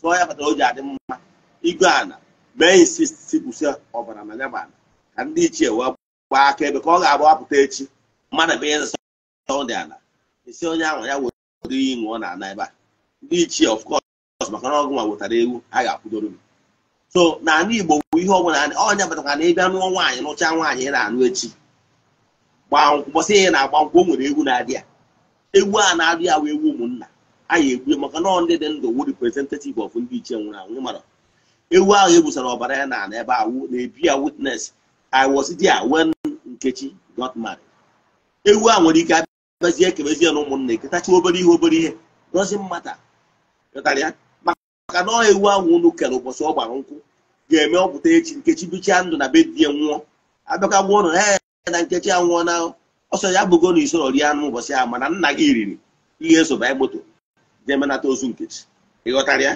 so ya kpatara o ji adị mma igwe ana mee insisti kwụsị ọbara na yaba ala ka ndị ichie wee gbaa aka ebe ka ọ ga-abụ apụta echi mmadụ bụ ihe dị ala esi onye ahụ ya were iyi ṅụọ na ana ebe a ndị ichie of course maka na ọgụ nwa wetara ewu a ga-akwụdoro gị so na n'ala igbo bụ ihe ọbụla ọnya batakwa na ịbịa nụọ nwaanyị nụcha nwaanyị ị na-anụ echi gbasị ihe na-agba nkwụ o nwere egwu na-adị ya egwu a na-adị ya wee ewu ụmụnna anyị egbu maka nọọ ndị dị ndụ wu representative of ndị ichie nwụrụ anwụ mara ewu ahụ egbusara ọbara ya na ebe awụ na-ebi ya I was there when Nkechi got married ewu a nwere ike kpezie ekebezi ya na ụmụnna eketachi obere ihe obere ihe dozi mmata ịtara maka na e ọha ewu ahụ unu kere ụbọchị ọ gbara nkwụ ga-eme ọpụta echi nkechi bichaa ndụ na be di ya nwụọ abịaka gbuo na ee, na nkechi a nwụọ na ọsọ ya bụgo na isoro rie anụ ụbọchị ahụ mana nna gị riri ihe esoba moto jee ozu nkechi ịghọtara ya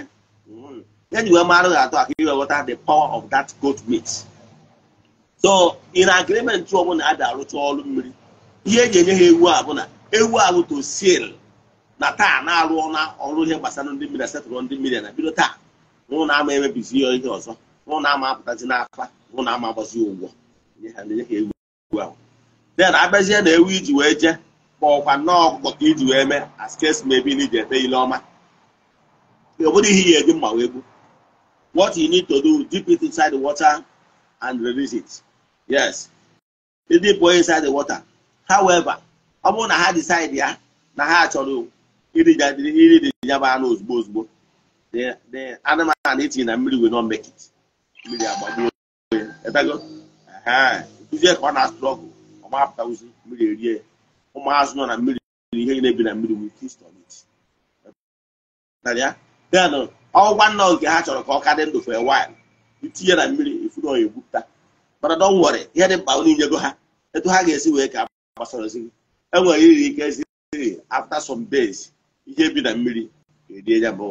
ya ji wee marụ ga atọ aka iwe ghọta the power of that goat meat so in agreement ọ bụla a arụcha ọrụ mmiri ihe eji enye ha ewu a ewu alụto sil na taa na-arụ na ọrụ ihe gbasara ndị mmiri setụrụ ndị mmiri na bido taa nụ na ama emebizi ya ihe ọzọ nụ na ama apụtazi n'afa nụ na ama agbazi ụgwọ den abịazie na ewu iji wee jee kpọọkwa nnọọ ọkụkọ ka iji wee mee askes mebi na iji ete ile ọma ọ bụrụ ihe ya eji mma wee gbu what you need to do dip it inside the water and release it yes dip it inside the water however ọ bụrụ na ha decide ya na ha chọrọ iri dị bụ anụ ozugbo ozugbo anụmanụ etinye na mmiri wee nọ mmekit mmiri agbagbuo kụzie ka ọ na-asụrụ ọgụ ọmapụta mmiri erie ụmụazụ nọ na mmiri ihe na-ebi na mmiri ọgwụgwa nna ha chọrọ ka ọ ka dị ndụ for wil itinye na mmiri ifuru oyi egwupụta mana dọ nwere ihe dị mkpa ha etu ha ga-esi wee ka gbasara ozi enwere iri ike siri after some days ihe bi na mmiri erie ya bụ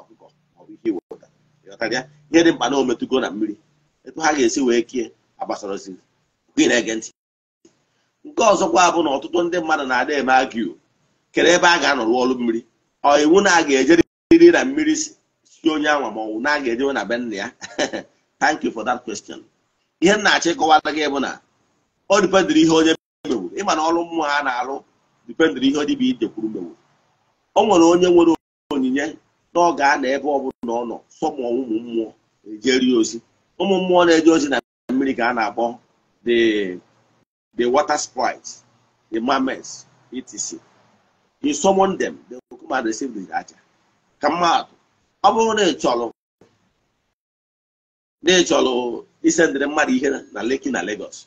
ọkụkọ maọbụ ihe iwepụta ịghọtara ya ihe dị mkpa na ometụgo na mmiri etu ha ga-esi wee kie agbasarọzi gị na-ege ntị nke ọzọkwa bụ na ọtụtụ ndị mmadụ na-ada eme agiu kere ebe a ga-anọ rụọ ọrụ mmiri ọ iwu na aga ga-ejeriri na mmiri si onye anwa ma ọnwụ na aga ga-ejewe na be nna ya thank you for that question ihe m na-achọ ịkọwata gị bụ na ọ dịpedịrị ihe onye ma na ọrụ mmụọ ha na-alụ dipendịrị ihe dibịa idekwuru kwuru mewo o nwere onye nwere onyinye na a na ebe ọ na ọ nọ sọmụ ụmụ mmụọ ejeri ozi ụmụ mmụọ na-eje ozi na mmiri ka a na-akpọ the water sprites the mermaids etc you summon them they will come and receive the aja ka mmadụ ọ bụrụ na ịchọrọ na ịchọrọ chọrọ isendịrị mmadụ ihe na Lekki na Lagos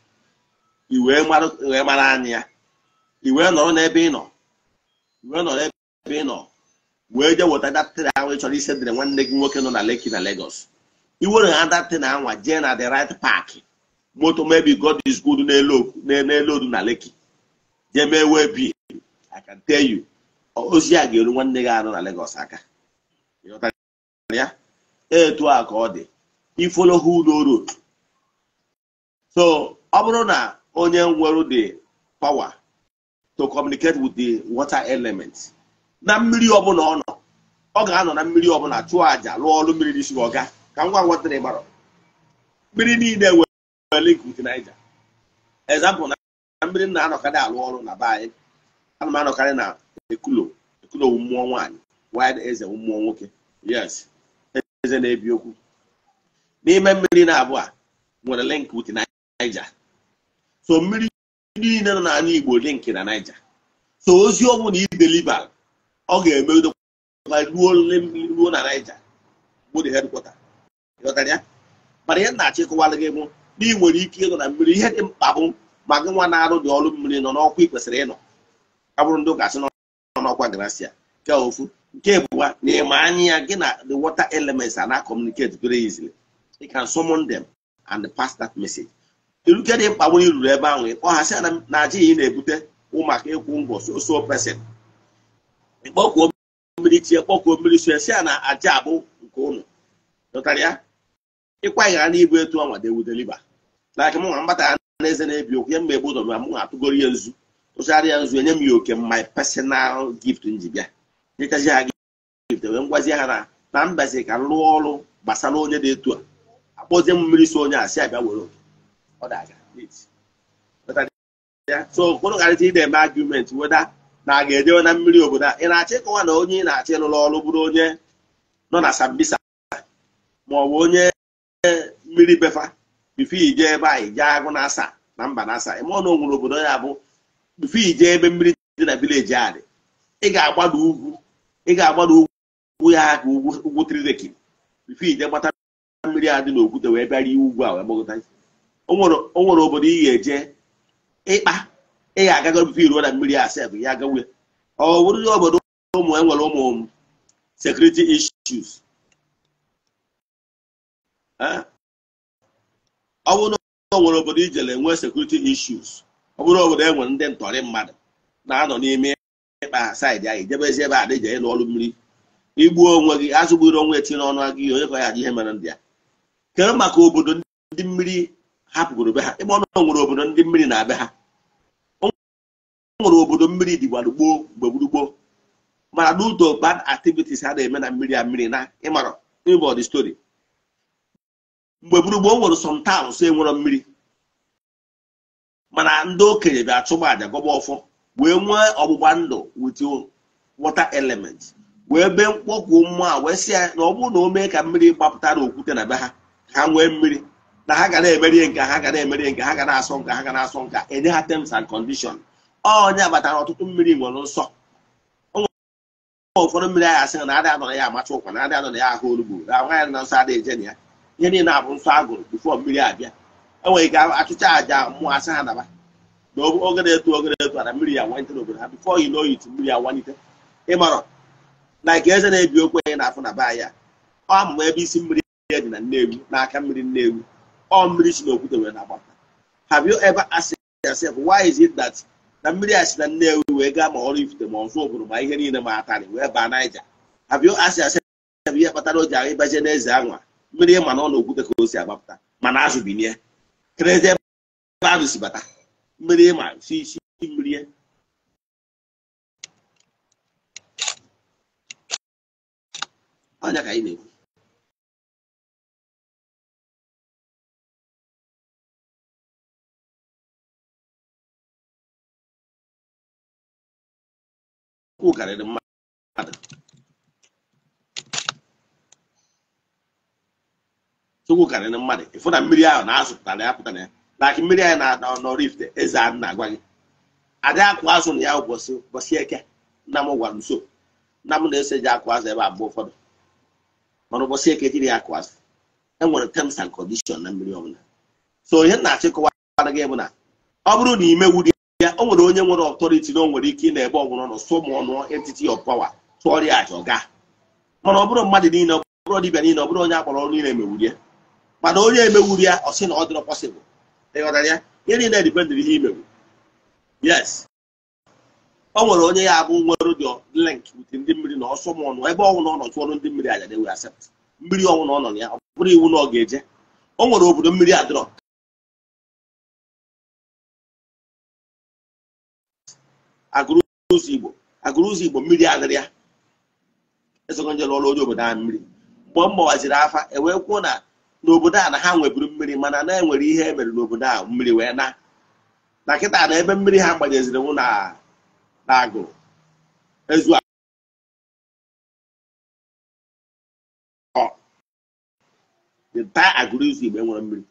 wee mara anya ya iwee nọrọ n'ebe ị nọ iwee nọrọ ebe ị nọ wee jee weta datịrị ahụ ị chọrọ ise dịrị nwanne gị nwoke nọ na Lekki na Lagos iwere ha datị na anwa jee na the right park moto mebi God is good n'elu odu na Lekki jee mee wee bi I can tell you ozi a ga-eru nwanne gị anọ na legos aka ya etu a ka ọ dị ifolo hudo road so ọ bụrụ na onye nwere the power to communicate with the water element na mmiri ọbụla ọ nọ ọ ga-anọ na mmiri ọbụla chụọ aja lụọ ọrụ mmiri n'isi ọga ka ngwa ngwa tịrị gbara mmiri niile nwere link with Niger example na mmiri na-anọkarị alụ ọrụ na be anyị ana m anọkarị na ekulo ekulo mmụọ nwaanyị wide eze mmụọ nwoke yes eze na-ebi okwu n'ime mmiri na abụọ a nwere link with Niger so mmiri niile nọ n'ala igbo dị nke na naija so ozi ọ bụla ideliba ọ ga-eme ruo na naija bụ the headquarter mana ihe na-achọ ịkọwara gị bụ na ị nwere ike ịnọ na mmiri ihe dị mkpa bụ ma gị nwa na-arụ dị ọrụ mmiri nọ n'ọkwa ị kwesịrị ịnọ abụrụ ndị ụka sị nọ n'ọkwa grasia nke ofu nke bụwa na ịma anya ya gị na the water elements ana na communicate very easily you can summon them and pass that message iruke dị mkpagbu na iruru ebe ahụ ịkpọghasị ana na aja iyi na-ebute ụmụaka maka ịkwụ ngwọ soso pesin ịkpọkuo mmiri chie kpọkuo mmiri so esi a na aja abụ nke ụnụ dọtara ya ịkwa ịghara na ibu etu ọnwa dewudeliba na aka m nwa mgbata na eze na-ebi okwu ya mgbe egbu ụdọ m atụgoro ya nzu tụchara ya nzu enye m ya oke my personal gift nji bịa nyetazi ha gift wee ngwazie ha na na mbazi ka m rụọ ọrụ gbasara onye dị etu a akpọzie m mmiri so onye a si abịa were oke ọ na-aga so okpụrụgharịta ide eme argument weda na a ga-ejewe na mmiri obodo a ị na-achọ ịkọwa na onye ị na-achọ ịlụrụ ọrụ bụrụ onye nọ na sambisa ma ọ bụ onye mmiri befa bifo ije ebe anyị jee agụ na asa na mba na asa ịmụọ na onwere obodo ya bụ bifo ije ebe mmiri dị na vileji a dị ị ga-agbada ugwu ị ga-agbada ugwu ya ka ugwu ugwu trireki bifo ije gbata mmiri a dị n'okwute wee bịara iwu ugwu a wee gbagota o nwere obodo ị ga-eje ịkpa ị ga-agaga obibi iruo na mmiri asef ya gawe ọ bụrụ obodo ụmụ enwere ụmụ sekuriti issues ọ bụrụ na o nwere obodo ijele nwee security ọ bụrụ obodo e nwere ndị ntọrị mmadụ na-anọ n'ime ịkpa saịdị anyị jebezi ebe a dịje ịlụ ọrụ mmiri igbuo onwe gị azụgburu onwe etinye n'ọnụ gị ihe onye ka ya ihe mere ndị ya kere maka obodo ndị mmiri hapụgoro be ha ebe ọ nọ nwere obodo ndị mmiri na-abịa ha ọ nwere obodo mmiri dịgwara gboo mgbe gburugboo mana n'udo bad activities ha na-eme na mmiri a mmiri na ịmara ịbọ story mgbe gburugboo nwere some e enwero mmiri mana ndị okenye bịa chụba aja gọba ọfọ wee nwee ọgbụgba ndụ with water element wee bee mkpọkwụ mmụọ wee sị ya na ọ bụrụ na o mee ka mmiri gbapụta na okwute na be ha ha nwee mmiri na ha ga na-emerie nke ha ga na-emerie nke ha ga na-asọ nke ha ga na-asọ nka enye ha terms and condition onye abatara ọtụtụ mmiri nwere nsọ ụfọdụ mmiri aha asị na adị adọrọ ya amacha ụkwa na adị adọrọ ya ahụ orugbo na nwaanyị na nsọ adịghị eje na ya ihe niile abụ nsọ agụrụ gụrụ mmiri abịa enwere ike achụcha aja mmụọ asị ha n'aba. na oge na-eto oge na-eto ada mmiri ya wanite n'obodo ha bifo yi n'oyitu mmiri ya wanite ịmarọ na nke eze na-ebi okwu anyị na afọ na be ya ọ amụma ebe isi mmiri ya dị na Nnewi n'aka mmiri Nnewi ọ mmiri si n'okwute wee na-agbata have you ever asked yourself why is it that na mmiri a si na Nnewi wee gaa ma ọrụ ifute ma ọzọ obodo ma ihe niile ma atarị wee baa Naija have you asked yourself ihe kpatara o ji ahụ ịbaje n'eze anwa mmiri ma na ọ na-okwute ka o si agbapụta mana azụ binie kerezi ebe bata mmiri ma si isi mmiri e. ka na-ekwu okwu karịrị mmadụ Chukwu karịrị mmadụ ịfụ na mmiri ahụ na-azụpụtara ya pụtara ya na aki mmiri anyị na-ada n'ọrụ eze a na-agwa gị adị akụ azụ na ya ụbọchị ụbọchị eke nna m gwara nso nna m na ese ji akụ azụ ebe abụọ ụfọdụ mana ụbọchị eke jiri ya akụ azụ enwere terms and condition na mmiri ọbụla so ihe na-achịkọwa gị bụ na ọ bụrụ na imewu dị ya o nwere onye nwere ọtọriti na o nwere ike ị na-ebe ọgwụrụ nọ sụ ụmụ ọnụ entiti of power tụọrịa aja ọga mana ọ bụrụ mmadụ niile ọ bụrụ dibịa niile ọ bụrụ onye akpọrọ ọrụ niile emewuri ya mana onye emewuri ya ọ sị na ọ dịrọ pọsịbụl ịghọtara ihe niile ihe imewu yes o nwere onye ya abụ nwere dị lịnk wute ndị mmiri na ọsụ ma ọnụ ebe ọnwụ na ọ ndị mmiri aja na-ewe asept na ya bụrụ iwu na ọ ga-eje o nwere obodo mmiri adịrọ agụrụ ụzọ igbo agụrụ ụzọ igbo mmiri adịrị ya esogo nje lụọrụ onye obodo ahụ mmiri mgbe m gbawaziri afa ewee kwuo na n'obodo a na ha nweburu mmiri mana na enwere ihe e mere n'obodo a mmiri wee na na kịta na ebe mmiri ha gbanyeziri nwụ na agụ ezu taa agụrụ ụzọ igbo enwere mmiri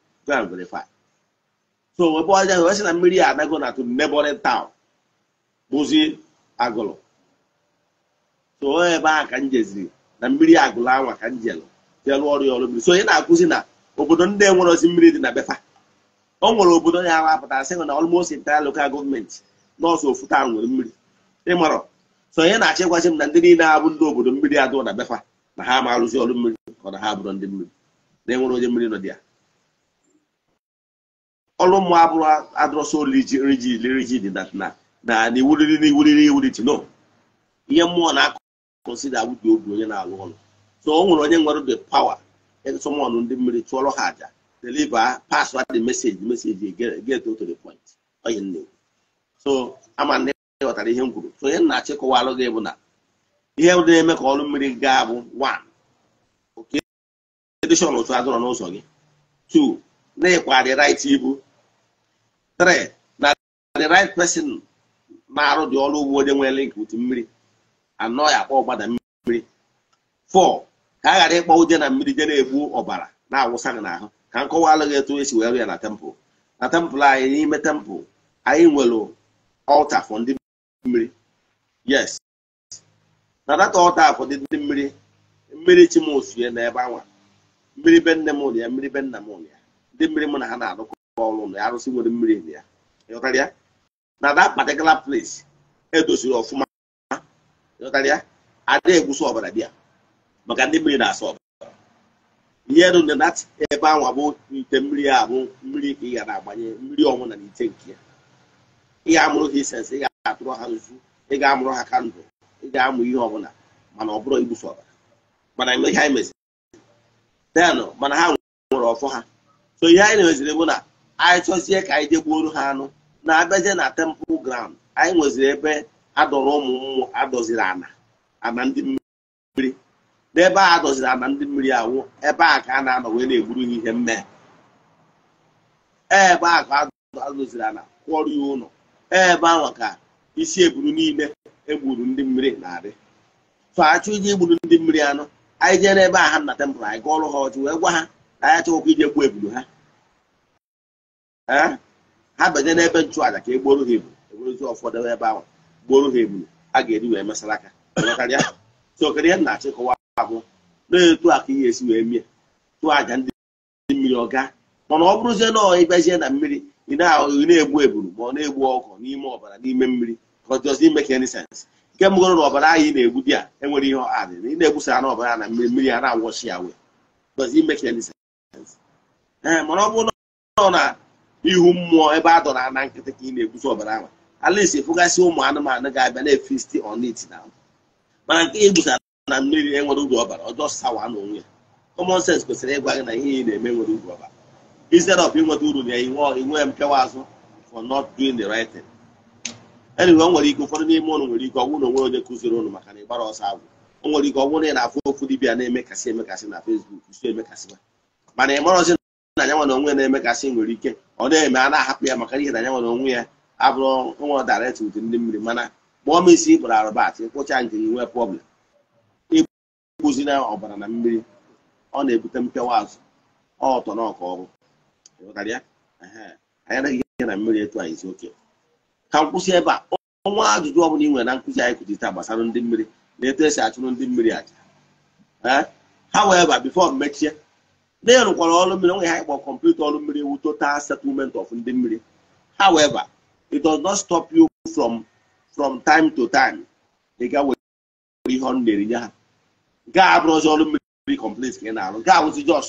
so webe ọjọọ wee sị na mmiri a anago na to neighboring town bụzi agụlụ so ebe a ka m jeziri na mmiri agụlụ anwa ka m jelu jelụ ọrụ ya ọrụ mmiri so onye na-akụzi na obodo ndị enwere ozi mmiri dị na befa O nwere obodo ya awapụtara sị na almost entire local gọọmenti nọọsụ ofu taa nwere mmiri ịmarọ so onye na-achịkwazi m na ndị niile abụ ndị obodo mmiri adụ na befa na ha ma ọrụ mmiri ka na ha bụrụ ndị mmiri na enwere onye mmiri nọ dị ya ọrụ mmụọ abụrụ adụrọsọ rigid rigid na na iwuriri iwuriri iwuriti no ihe mmụọ na-akọnsida si awụdi obi onye na-alụ ọlụ so o nwere onye nwere the power e somon ndị mmiri chụọrọ ha aja deliver pass the message message get to the point onye nne so ama ndị ghọtara ihe m kwuru so onye nna achịkọwa kọwalụ gị bụ na ihe na-eme ka ọrụ mmiri gaa bụ one oke edishọn otu adọrọ n'ụzọ gị two na-ekwa the right ibu three na the right person na-arụ dị ọrụ ugbo onye nwere nke uti mmiri anọ ya akpọ ọgbada mmiri fọ ka a ghara ịkpọ ụdị na mmiri je na-egbu ọbara na-awụsa gị n'ahụ ka nkọwa alụghị etu esi wee rụ ya na tempụl na tempụl anyị n'ime tempụl anyị nwere ọlta fọ ndị mmiri yes na data ọlta dị ndị mmiri mmiri chimosue na ebe anwa mmiri be nne m ụlọ ya mmiri be nna m ụlọ ya ndị mmiri mụ na ha na-arụkọ ọrụ na arụsị nwere mmiri ya ịghọtara ya na that particular place edoziri ọfụma karịa adịghị egwusi ọbara bịa maka ndị mmiri na-asa ọbara ihe dị na ebe ahụ abụ ite mmiri a bụ mmiri ka ị ga na-agbanye mmiri ọnwụ na ite nke ya ị ga-amụrụ ha isensi ị ga-atụrụ ha nzu ị ga-amụrụ ha kandụl ị ga-amụ ihe ọbụla mana ọ bụrụ igbuso ọbara mana ihe anyị meziri denụ mana ha nwere ọfọ ha so ihe anyị na-emeziri bụ na anyị chọzie ka anyị jegbuoro ha anụ na-abịazie na temple ground anyị nweziri ebe adọrọ ụmụ mmụọ adọziri ana ana ndị mmiri n'ebe a adọziri ana ndị mmiri awụ ebe a ka a na-anọ wee na-egburu ha ihe mmehie ebe a ka adọziri ana kwọrọ ya ụlọ ebe ahụ ka isi eburu niile egburu ndị mmiri na-adị tụ achụ ije igburu ndị mmiri anọ anyị jere ebe a ha na temple anyị gụọrụ ha ọchụ wee gwa ha na anyị achọghịkwa ije gbuo eburu ha ha banye n'ebe nchụaja ka egboro gboro ha ebulu e egburozi ụfọdụ ebe ahụ gboro ha ebulu a ga-eri wee mesara aka sokarịa na-achịkọwa abụ na-etu aka ihe esi wee mie tụọ aja ndị mmiri ọga mana ọ bụrụzie na ịbịazie na mmiri ị na-egbu eburu ma ọ na-egbu ọkụ n'ime ọbara n'ime mmiri ime ka na egbu di enwere ihe adị ị ọbara na mmiri mmiri a na-awọchi ya ihu mmụọ ebe a dọrọ na nkịtị ka ị na-eguzo ọbara ahụ alisi fụgasị ụmụ anụmanụ ga-abịa na-efisti onit na mana nke igbusa na mmiri enwere uru ọbara ọjọọ sawa na onwe ya common sense kwesịrị ịgwa gị na ihe ị na-eme nwere uru ọbara instead of inweta uru na inwe mpịawa azụ for not doing the right thing enyiwe o nwere ike ụfọdụ n'ime ụnụ nwere ike ọnwụ na onwe onye kụziri ụnụ maka na ịgbara ọsọ agwụ o nwere ike ọnwụ na ị na-afụ okwu dibịa na-emekasị emekasị na Facebook si emekasị mana ị na ya nwa na onwe na-emekasị nwere ike ọ na-eme a na-ahapụ ya maka ihe na ya nwere onwe ya abụrụ nwa daretị ụdị ndị mmiri mana ma ọ mesi ịkpụrụ arụbat ịkpụcha nke nwee problem na ọbara na mmiri ọ na-ebute mpịawa azụ ọtọ na ọka ọrụ anyị ihe na mmiri etu anyị oke ka m kwụsị ebe a ọnwa ajụjụ ọ bụla ị nwere na nkụzi anyị kụzi taa gbasara ndị mmiri na etu esi achụrụ ndị mmiri aja ha wee ba bifo mechie na ya rụkwara ọrụ mmiri onwe ha ịkpọ kọmputa ọrụ mmiri wu total settlement of ndị mmiri however it does not stop you from from time to time ga were ihe ọrụ na-erinye ha gaa abụrụzi ọrụ mmiri complete ka ị na-arụ gaa wụzi jos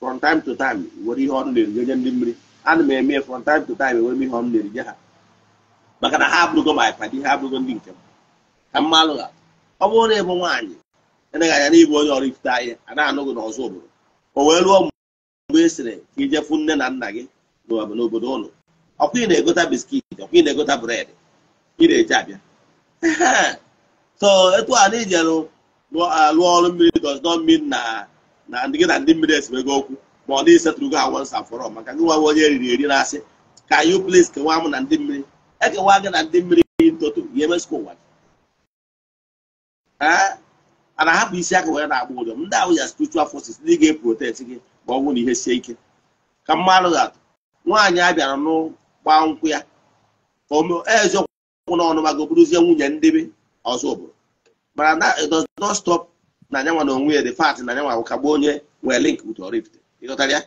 from time to time were ihe ọrụ na-erinye nye ndị mmiri ana m eme from time to time ewere m ihe ọrụ na-erinye ha maka na ha abụrụgo ma ịpadi ha abụrụgo ndị nke m ka mmalụ ha ọ bụrụ na ịbụ nwaanyị anaghị anya na ịbụ onye ọrụ ifute ahịa a na-anụ n'ọzọ obodo o wee lụọ mgbe ị e sịrị ka ijefu nne na nna gị n'obodo ụlọ ọkwa ị na-egota biskit ọkwa ị na-egota bred ị na-eji abịa so etu a na ijerụ lụọ ọrụ mmiri does mmiri na na ndị gị na ndị mmiri esemego okwu ma ọ dịghị setụrụgo ha once and for all maka gị nwa onye eriri eri na-asị ka yu plis kewaa m na ndị mmiri ekewa gị na ndị mmiri ntoto ya emesịkwa ụwa gị a na-ahapụ isi aka wee na-agba ụjọ ndị ahụ ya spiritual forces ndị ga-eprotect gị ma ọ bụrụ na ihe sie ike ka mma ga-atụ nwaanyị a bịara nkwụ ya ka na ọnụ mago bụrụzie nwunye ndebe ọzọ obodo mana na it na anyanwa na onwe ya dị fat na anyanwa kagbuo onye nwee link with ịghọtara ya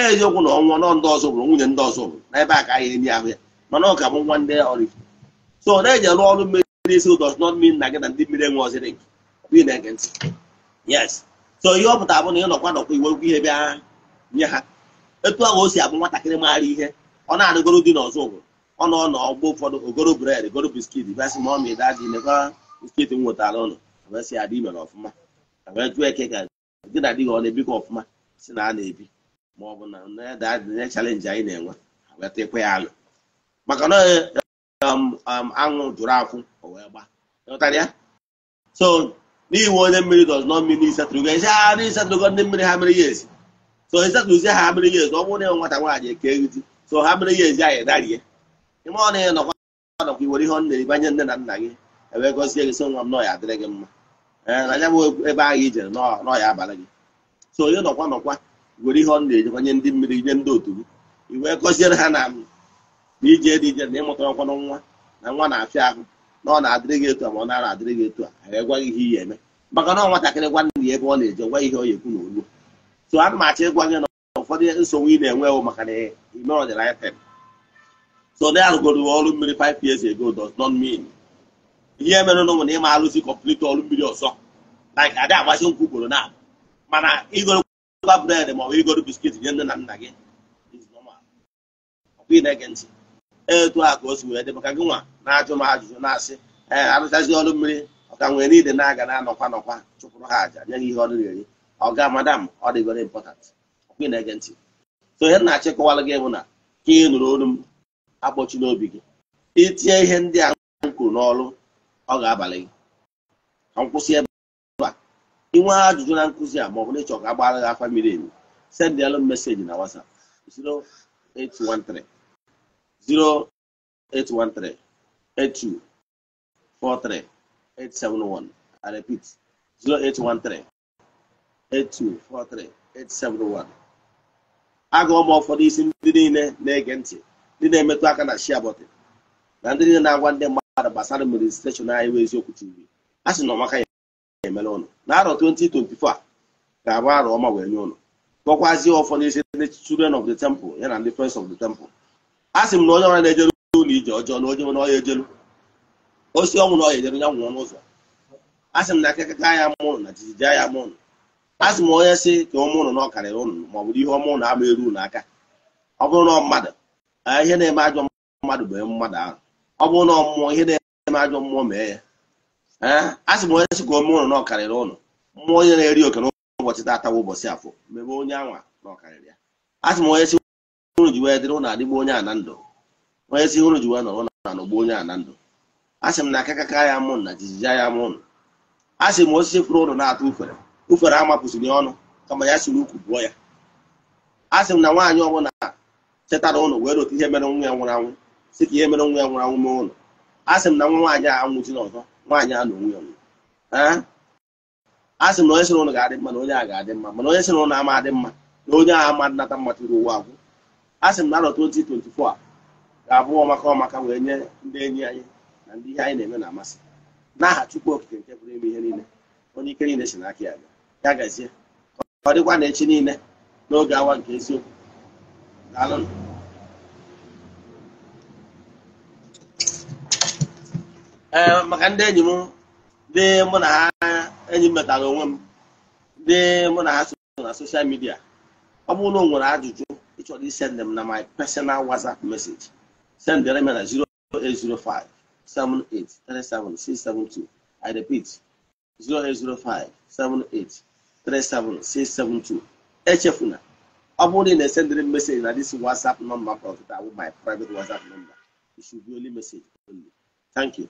eziokwu na ọnwụ nọ ndị ọzọ bụrụ nwunye ndị ọzọ bụrụ n'ebe a ka anyị emi ahụ ya mana ọ ga-abụ nwa ndị ọrifte so na-eji arụ ọrụ mmiri n'isi does not mean na gị na ndị mmiri enwe ọzọ link ị na-ege ntị yes so ihe ọ pụtara bụ na ị nọkwa nọkwa iwe okwu ihe bịa nye ha etu ahụ o si abụ nwatakịrị maara ihe ọ na adịgoro dị n'ọzọ ụgwụ ọ nọ n'ọgbọ ụfọdụ ogoro bred goro biskit bịasị ma ọ ma ịdaji mekwa biskit m nwetara ụlọ abịasị adị imere ọfụma jụọ eke ka gị na dịghị ọ na-ebikọ ọfụma si na a na-ebi ma ọ bụ na na chalenji anyị na-enwe wetakwa ya alụ maka na um, um, anwụ jụrụ akwụ o wee gbaa ya so n'iwu onye mmiri nọ not a ịsatụrụgo ezi ha na ịsatụrụgo ndị mmiri ha mere ya ezi so ịsatụrụzi ha mere ya ezi ọ bụrụ na nwata nwaanyị eke ezi so ha mere ya ezi anyị darie ịma ọ na ya nọkwa iwere ihe ọ na nne na nna gị ewee gọzie gị so nwa m nọ ya adịrị gị mma e, na ya bụ ebe ahụ ijere nọ ya abalị gị so onye nọkwa nọkwa were ihe ọ na-ejekwanye ndị mmiri nye ndị otu gị iwee gọziere ha na ije dị ije na ịmụtara ọkwanụ nwa na nwa na-afịa ahụ na ọ na-adịrị gị etu a ma ọ nara adịrị gị etu a anyị egwaghị ihe ihe eme maka na nwatakịrị gwanne ya ebe ọ na-eje gwa ihe ọ ekwu na olu so ana m achọ ịgwa gị na ụfọdụ nsogbu ị na-enwe ewu maka na ime ọdịnaya tem so na arụgoro ọrụ mmiri paip years ago does not mean ihe mere n'ụmụ na ịma arụzi kọmplit ọrụ mmiri ọzọ like adị agbachi nkwụ ugboro na mana ịgorọkwa bred ma ọ bụ igoro biskit nye nne na nna gị ọkwa ị na-ege ntị etu a ka o si wee dị maka gị nwa na-ajụ m ajụjụ na-asị ee arụchazi ọrụ mmiri ọka nwee niile na-aga na-anọkwa nọkwa chụpụrụ ha aja nye gị ihe ọrụ eri ọga madam ọ dị very important ọkwa ị na-ege ntị so ihe na-achị gị bụ na ka ị nụrụ olu m akpọchi n'obi gị itinye ihe ndị a kwuru n'ọrụ ọ ga-abalị gị ka nkwụsị ebe a inwe ajụjụ na nkụzi a ma ọ bụ na ịchọ ka agbaghara gị afa mmiri emi sendịalụ meseji na WhatsApp 0813 0813 82 871. I repeat 0813 82 871. agụọ m ụfọdụ isi ndị niile na-ege ntị ndị na-emetụ aka na shia bọtị, na ndị niile na-agwa ndị mmadụ gbasara administreshọn anyị bụ eziokwu chiri a sị na ọmaka ya emere ụnụ na arọ 2024 ga-abụ arọ ọma wee nye ụnụ gọkwazie ụfọdụ isi ndị children of the temple ya na ndị friends of the temple a sị m na onye ọra na-ejelu ụlọ ije ọjọọ na onye nwere ọya ejelu osi ọnwụ na ọya ejelu ya nwụọ n'ụzọ a sị m na akịkaka ya mụrụ na jijiji ya mụrụ a sị m onye sị ka ụmụ na ọ ụnụ ma ọ bụrụ ihe ọmụ na eru aka ọ bụrụ na mmadụ ihe na-eme ajọ mmadụ bụ mmadụ ahụ ọ bụrụ na mmụọ ihe na-eme ajọ mmụọ mee ya a sị m onye sị ka ụnụ na ọ eri oke n'ụbọchị ụbọchị afọ mebe onye anwa ya a sị m onye unu ji wee dịrị ụnụ adịgbu onye a na ndụ onye si ji wee nọrọ na anọgbu onye a na ndụ sị m na akakaka ya mụ na jijiji ya mụ osisi fụrụ ụlọ na-atụ ufere ufere amapụsịrị ọnụ kama ya siri ukwu bụọ ya asị m na nwaanyị ọbụla chetara wee rote ihe mere nwa ya nwụrụ anwụ si ka ihe mere nwa ya nwụrụ anwụ mee ụlọ m na nwaanyị a anwụchila ọzọ nwaanyị a na onwe ya asị m na onye sịrị ga-adị mma na onye a ga-adị mma mana onye sịrị ụnụ ama adị mma na onye a ama nnata mma ụwa agwụ a sị m na arọ 2024 ga-abụ ọmaka ọmaka wee nye ndị enyi anyị na ndị ihe anyị na-eme na-amasị n'aha Chukwu Okike nke pụrụ ime ihe niile onye ike niile si n'aka ya ya gazie ọ dịkwa na echi niile n'oge awa nke eziokwu ee maka ndị enyi m ndị mụ na ha enyi m metara onwe m ndị mụ na ha so na soshal midia ọ bụrụ na o nwere ajụjụ Actually send them now my personal WhatsApp message. Send the email at 0805 I repeat, 0805 78 HFUNA. I'm only sending the message at this WhatsApp number, my private WhatsApp number. It should be only message only. Thank you.